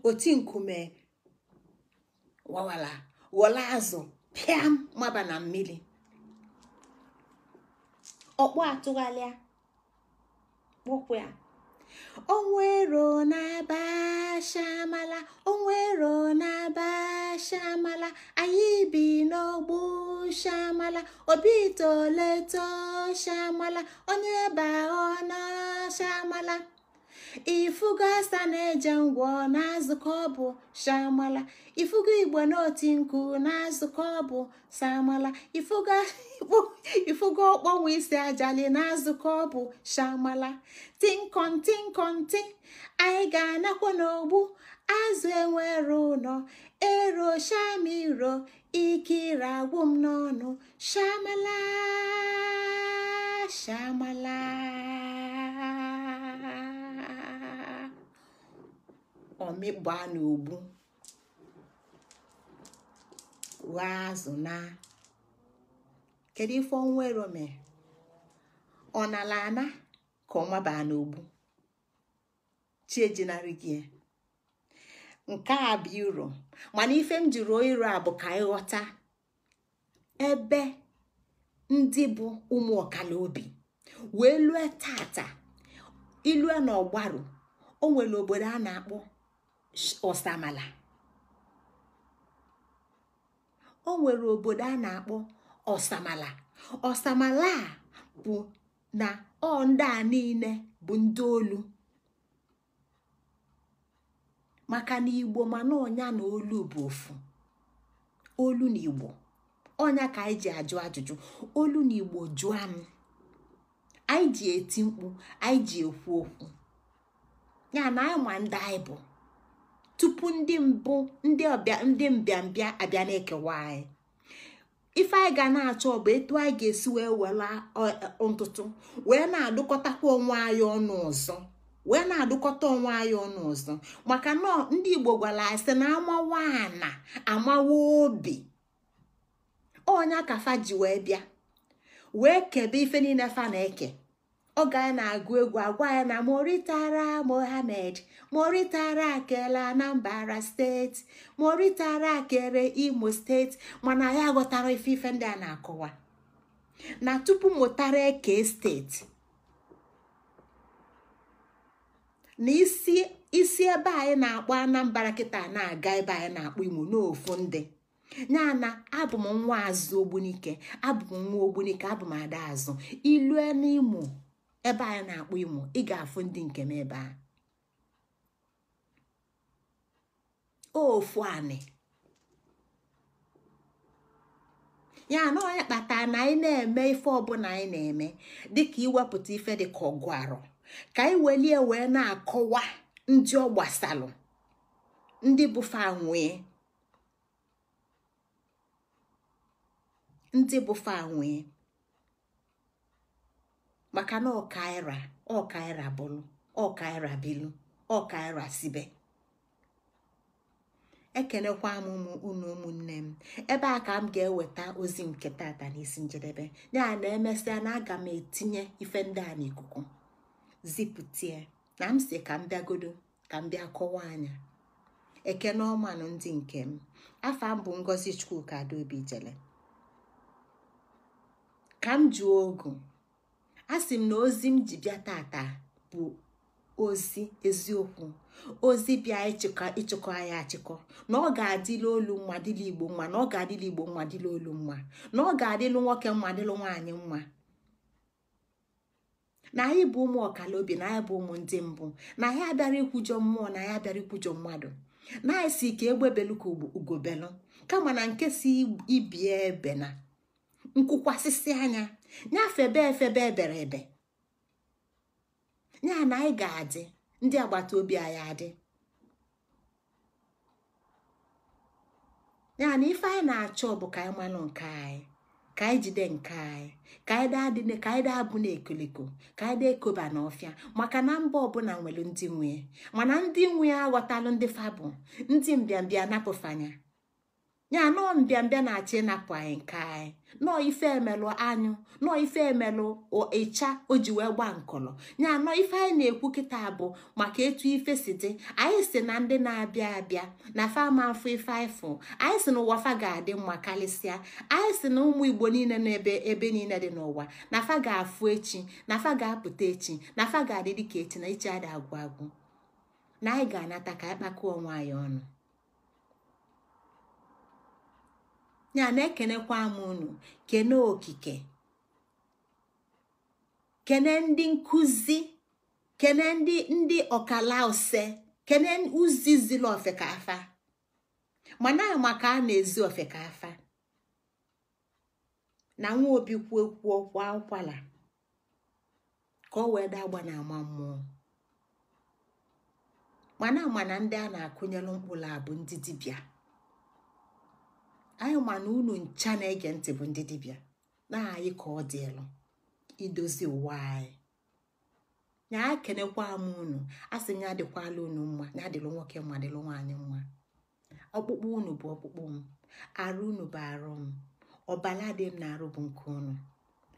oti nkume wawala wọla azụ pịam maba na mmiri ọkpụ atụgharịa kpọkwụ ya onwero na-aba shamala onwero na-aba shamala anyị bi n'ọgbụ shamala obi toleto shamala onye baa ọ na shamala ifugo asa na-eje ngwọ na-azụkọ ọbụ shamala ifugo igbo n'oti nkụ na-azụkọ ọbụ samala ifugo ọkpọnwụ isi ajali na-azụkọ ọbụ shamala tinkon tinkon ti anyị ga-anakwa n'ogbu azụ enwere ụnọ, ero shamiro ikiri agwụ m n'ọnụ shamala shamala ọmịgbaa n'ogbu ghọọ azụ na kedu ife ọnwa ero mere ọ nala ana ka ọnwa baa n'ogbu chi ejinarị gị e. nke a bụ iro mana ife m ji iro a bụ ka ịghọta ebe ndị bụ ụmụ ọkala obi wee lue tata ilue na ọgbarụ o nwere obodo a na-akpọ ọsamala o nwere obodo a na-akpọ ọsamala ọsamala a bụ na ọ ndị a niile bụ ndị olu maka na igbo mana ọnya na olu bụ ofu olu na igbo ọnya ka anyị ji ajụ ajụjụ olu na igbo jụọ m anyị ji eti mkpu anyị ji ekwu okwu ya na anyị ma ndị anyị bụ tupu ndị mbụ ndị ọbịa ndị mbịambịa abịa na-ekewa anyị ife anyị ga na-achọ bụ etu anyị ga-esi wee wela ntụtụ wee na-adụkọtakwa onwe anyị ọnụ ọzọ wee na-adụkọta onwe anyị ọnụ ọzọ maka na ndị igbo gwara anyị sị na amawa ana amawa obi Onye kafa ji wee bịa wee kebe ife niile fa na-eke ọ ga na-agụ egwu agwa ya na moritara Mohamed, moritara akele anambra steeti moritara akere imo steeti mana ya ghọtara ife ife ndị a na-akọwa na tupu mụtara eke steeti na isi ebe anyị na-akpọ anambra kịta na-aga ebe anyị na-akpọ imo n'ofu ndị ya na abụ m nwa azụ ogbunike abụ m nwa ogbunike abụ m ada azụ ilue n'imo ebe a na-akpọ imo ị ga-afụ ndị nke m ebe a ofu anị ya na onye kpata na anyị na-eme ife ọbụla anyị na-eme dịka iwepụta ife dị ka ọgụ arọ ka anyị welie wee na-akọwa ndị ọ gbasalụ ndị bụfa nwee ndị nwee maka na ọkaira ọkaira bụlụ ọkaira bilu ọkaira sibe ekenekwa m ụmụ unu ụmụnne m ebe a ka m ga-eweta ozi nke tata n'isi njedebe ya na emesịa na aga m etinye ife ndị a n'ikuku zipụtie na m si ka m bịagodo ka m bịa kọwa anya ekene ọmanụ ndị nke m afọ m bụ ngozi chukwuka ka m jụọ ogu a sị m na ozi m ji bịa tata bụ ozi eziokwu ozi bịa ịchịkọ anyị achịkọ na ọ ga-adịla olu mma dịla igbo mma na ọ ga-adịla igbo mma dịla olu mma na ọ ga-adịlụ nwoke mma dịlụ nwaanyị mma na anyị bụ ụmụ ọkala obi na anyị bụ ụmụ ndị mbụ na anyị abịara ikwujọ mmụọ na anyị abịara ikwujọ mmadụ na anyị si ka egbebelu ka ugobelu kama na nke si ibie ebena nkwụkwasịsị anya nyafebe efebe ebere ebe nya e na anyị ga-adị ndị agbata obi anyị adị ya na ife anyị na-achọ bụ ka anyị malụ nke anyị ka anyị jide nke anyị ka anyị daa dị ka anyị daa bụ na ekoliko ka anyị daa ekoba n'ọfịa maka na mba ọbụla nwere ndị nwe mana ndị nwe aghọtalụ ndị fabụ ndị mbịambịa napụfanya ya nọọ mbịambịa na-achọ ịnapụ anyị nke anyị nọọ ife emelụ anyụ nọọ ife emelụ ịcha o ji wee gba nkọlọ ya nọ ife anyị na-ekwu kịta bụ maka etu ife si dị anyị si na ndị na-abịa abịa na fama afọ ife ifụ anyị si na ụwa fa ga-adị mma karịsịa anyị si na ụmụ igbo niile n'ebe ebe niile dị n'ụwa na fa ga-afụ echi na fa ga-apụta echi na fa ga-adị dịka echi na ichi adị agwụ agwụ na anyị ga-anata ka anyị kpakọọ nwaanyị ọnụ ya na-ekenekwa m unu kene okike kene ndị nkụzi kene ndị ndị ọkala kene uzi ziri ofekafa mana maka a na-ezi ofekafa na nwa obi kwuo kwuo kwa ụkwala ka ọ wee dagba na ama mmụọ mana mana ndị a na-akụnyelụ mkpụrụ abụ ndị anyị ma na unu ncha na-ege ntị bụ ndị dibịa na anyị ka ọ dịlụ idozi ụwa anyị nya ekenekwa m unu a sị nya adịkwala unu mma nya adịlụ nwoke mma adịlụ nwaanyị mma ọkpụkpụ unu bụ ọkpụkpụ m arụ unu bụ arụ m ọbala dị m na-arụ bụ nke unu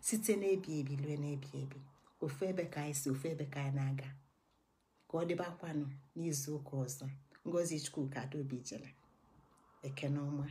site n'ebi ebi lue n'ebi ebi ofu ebe ka anyị si ofu ebe ka anyị na-aga ka ọ dịbakwanụ n'izu ụka ọzọ ngozi chukwuka adaobi jere ekene ọma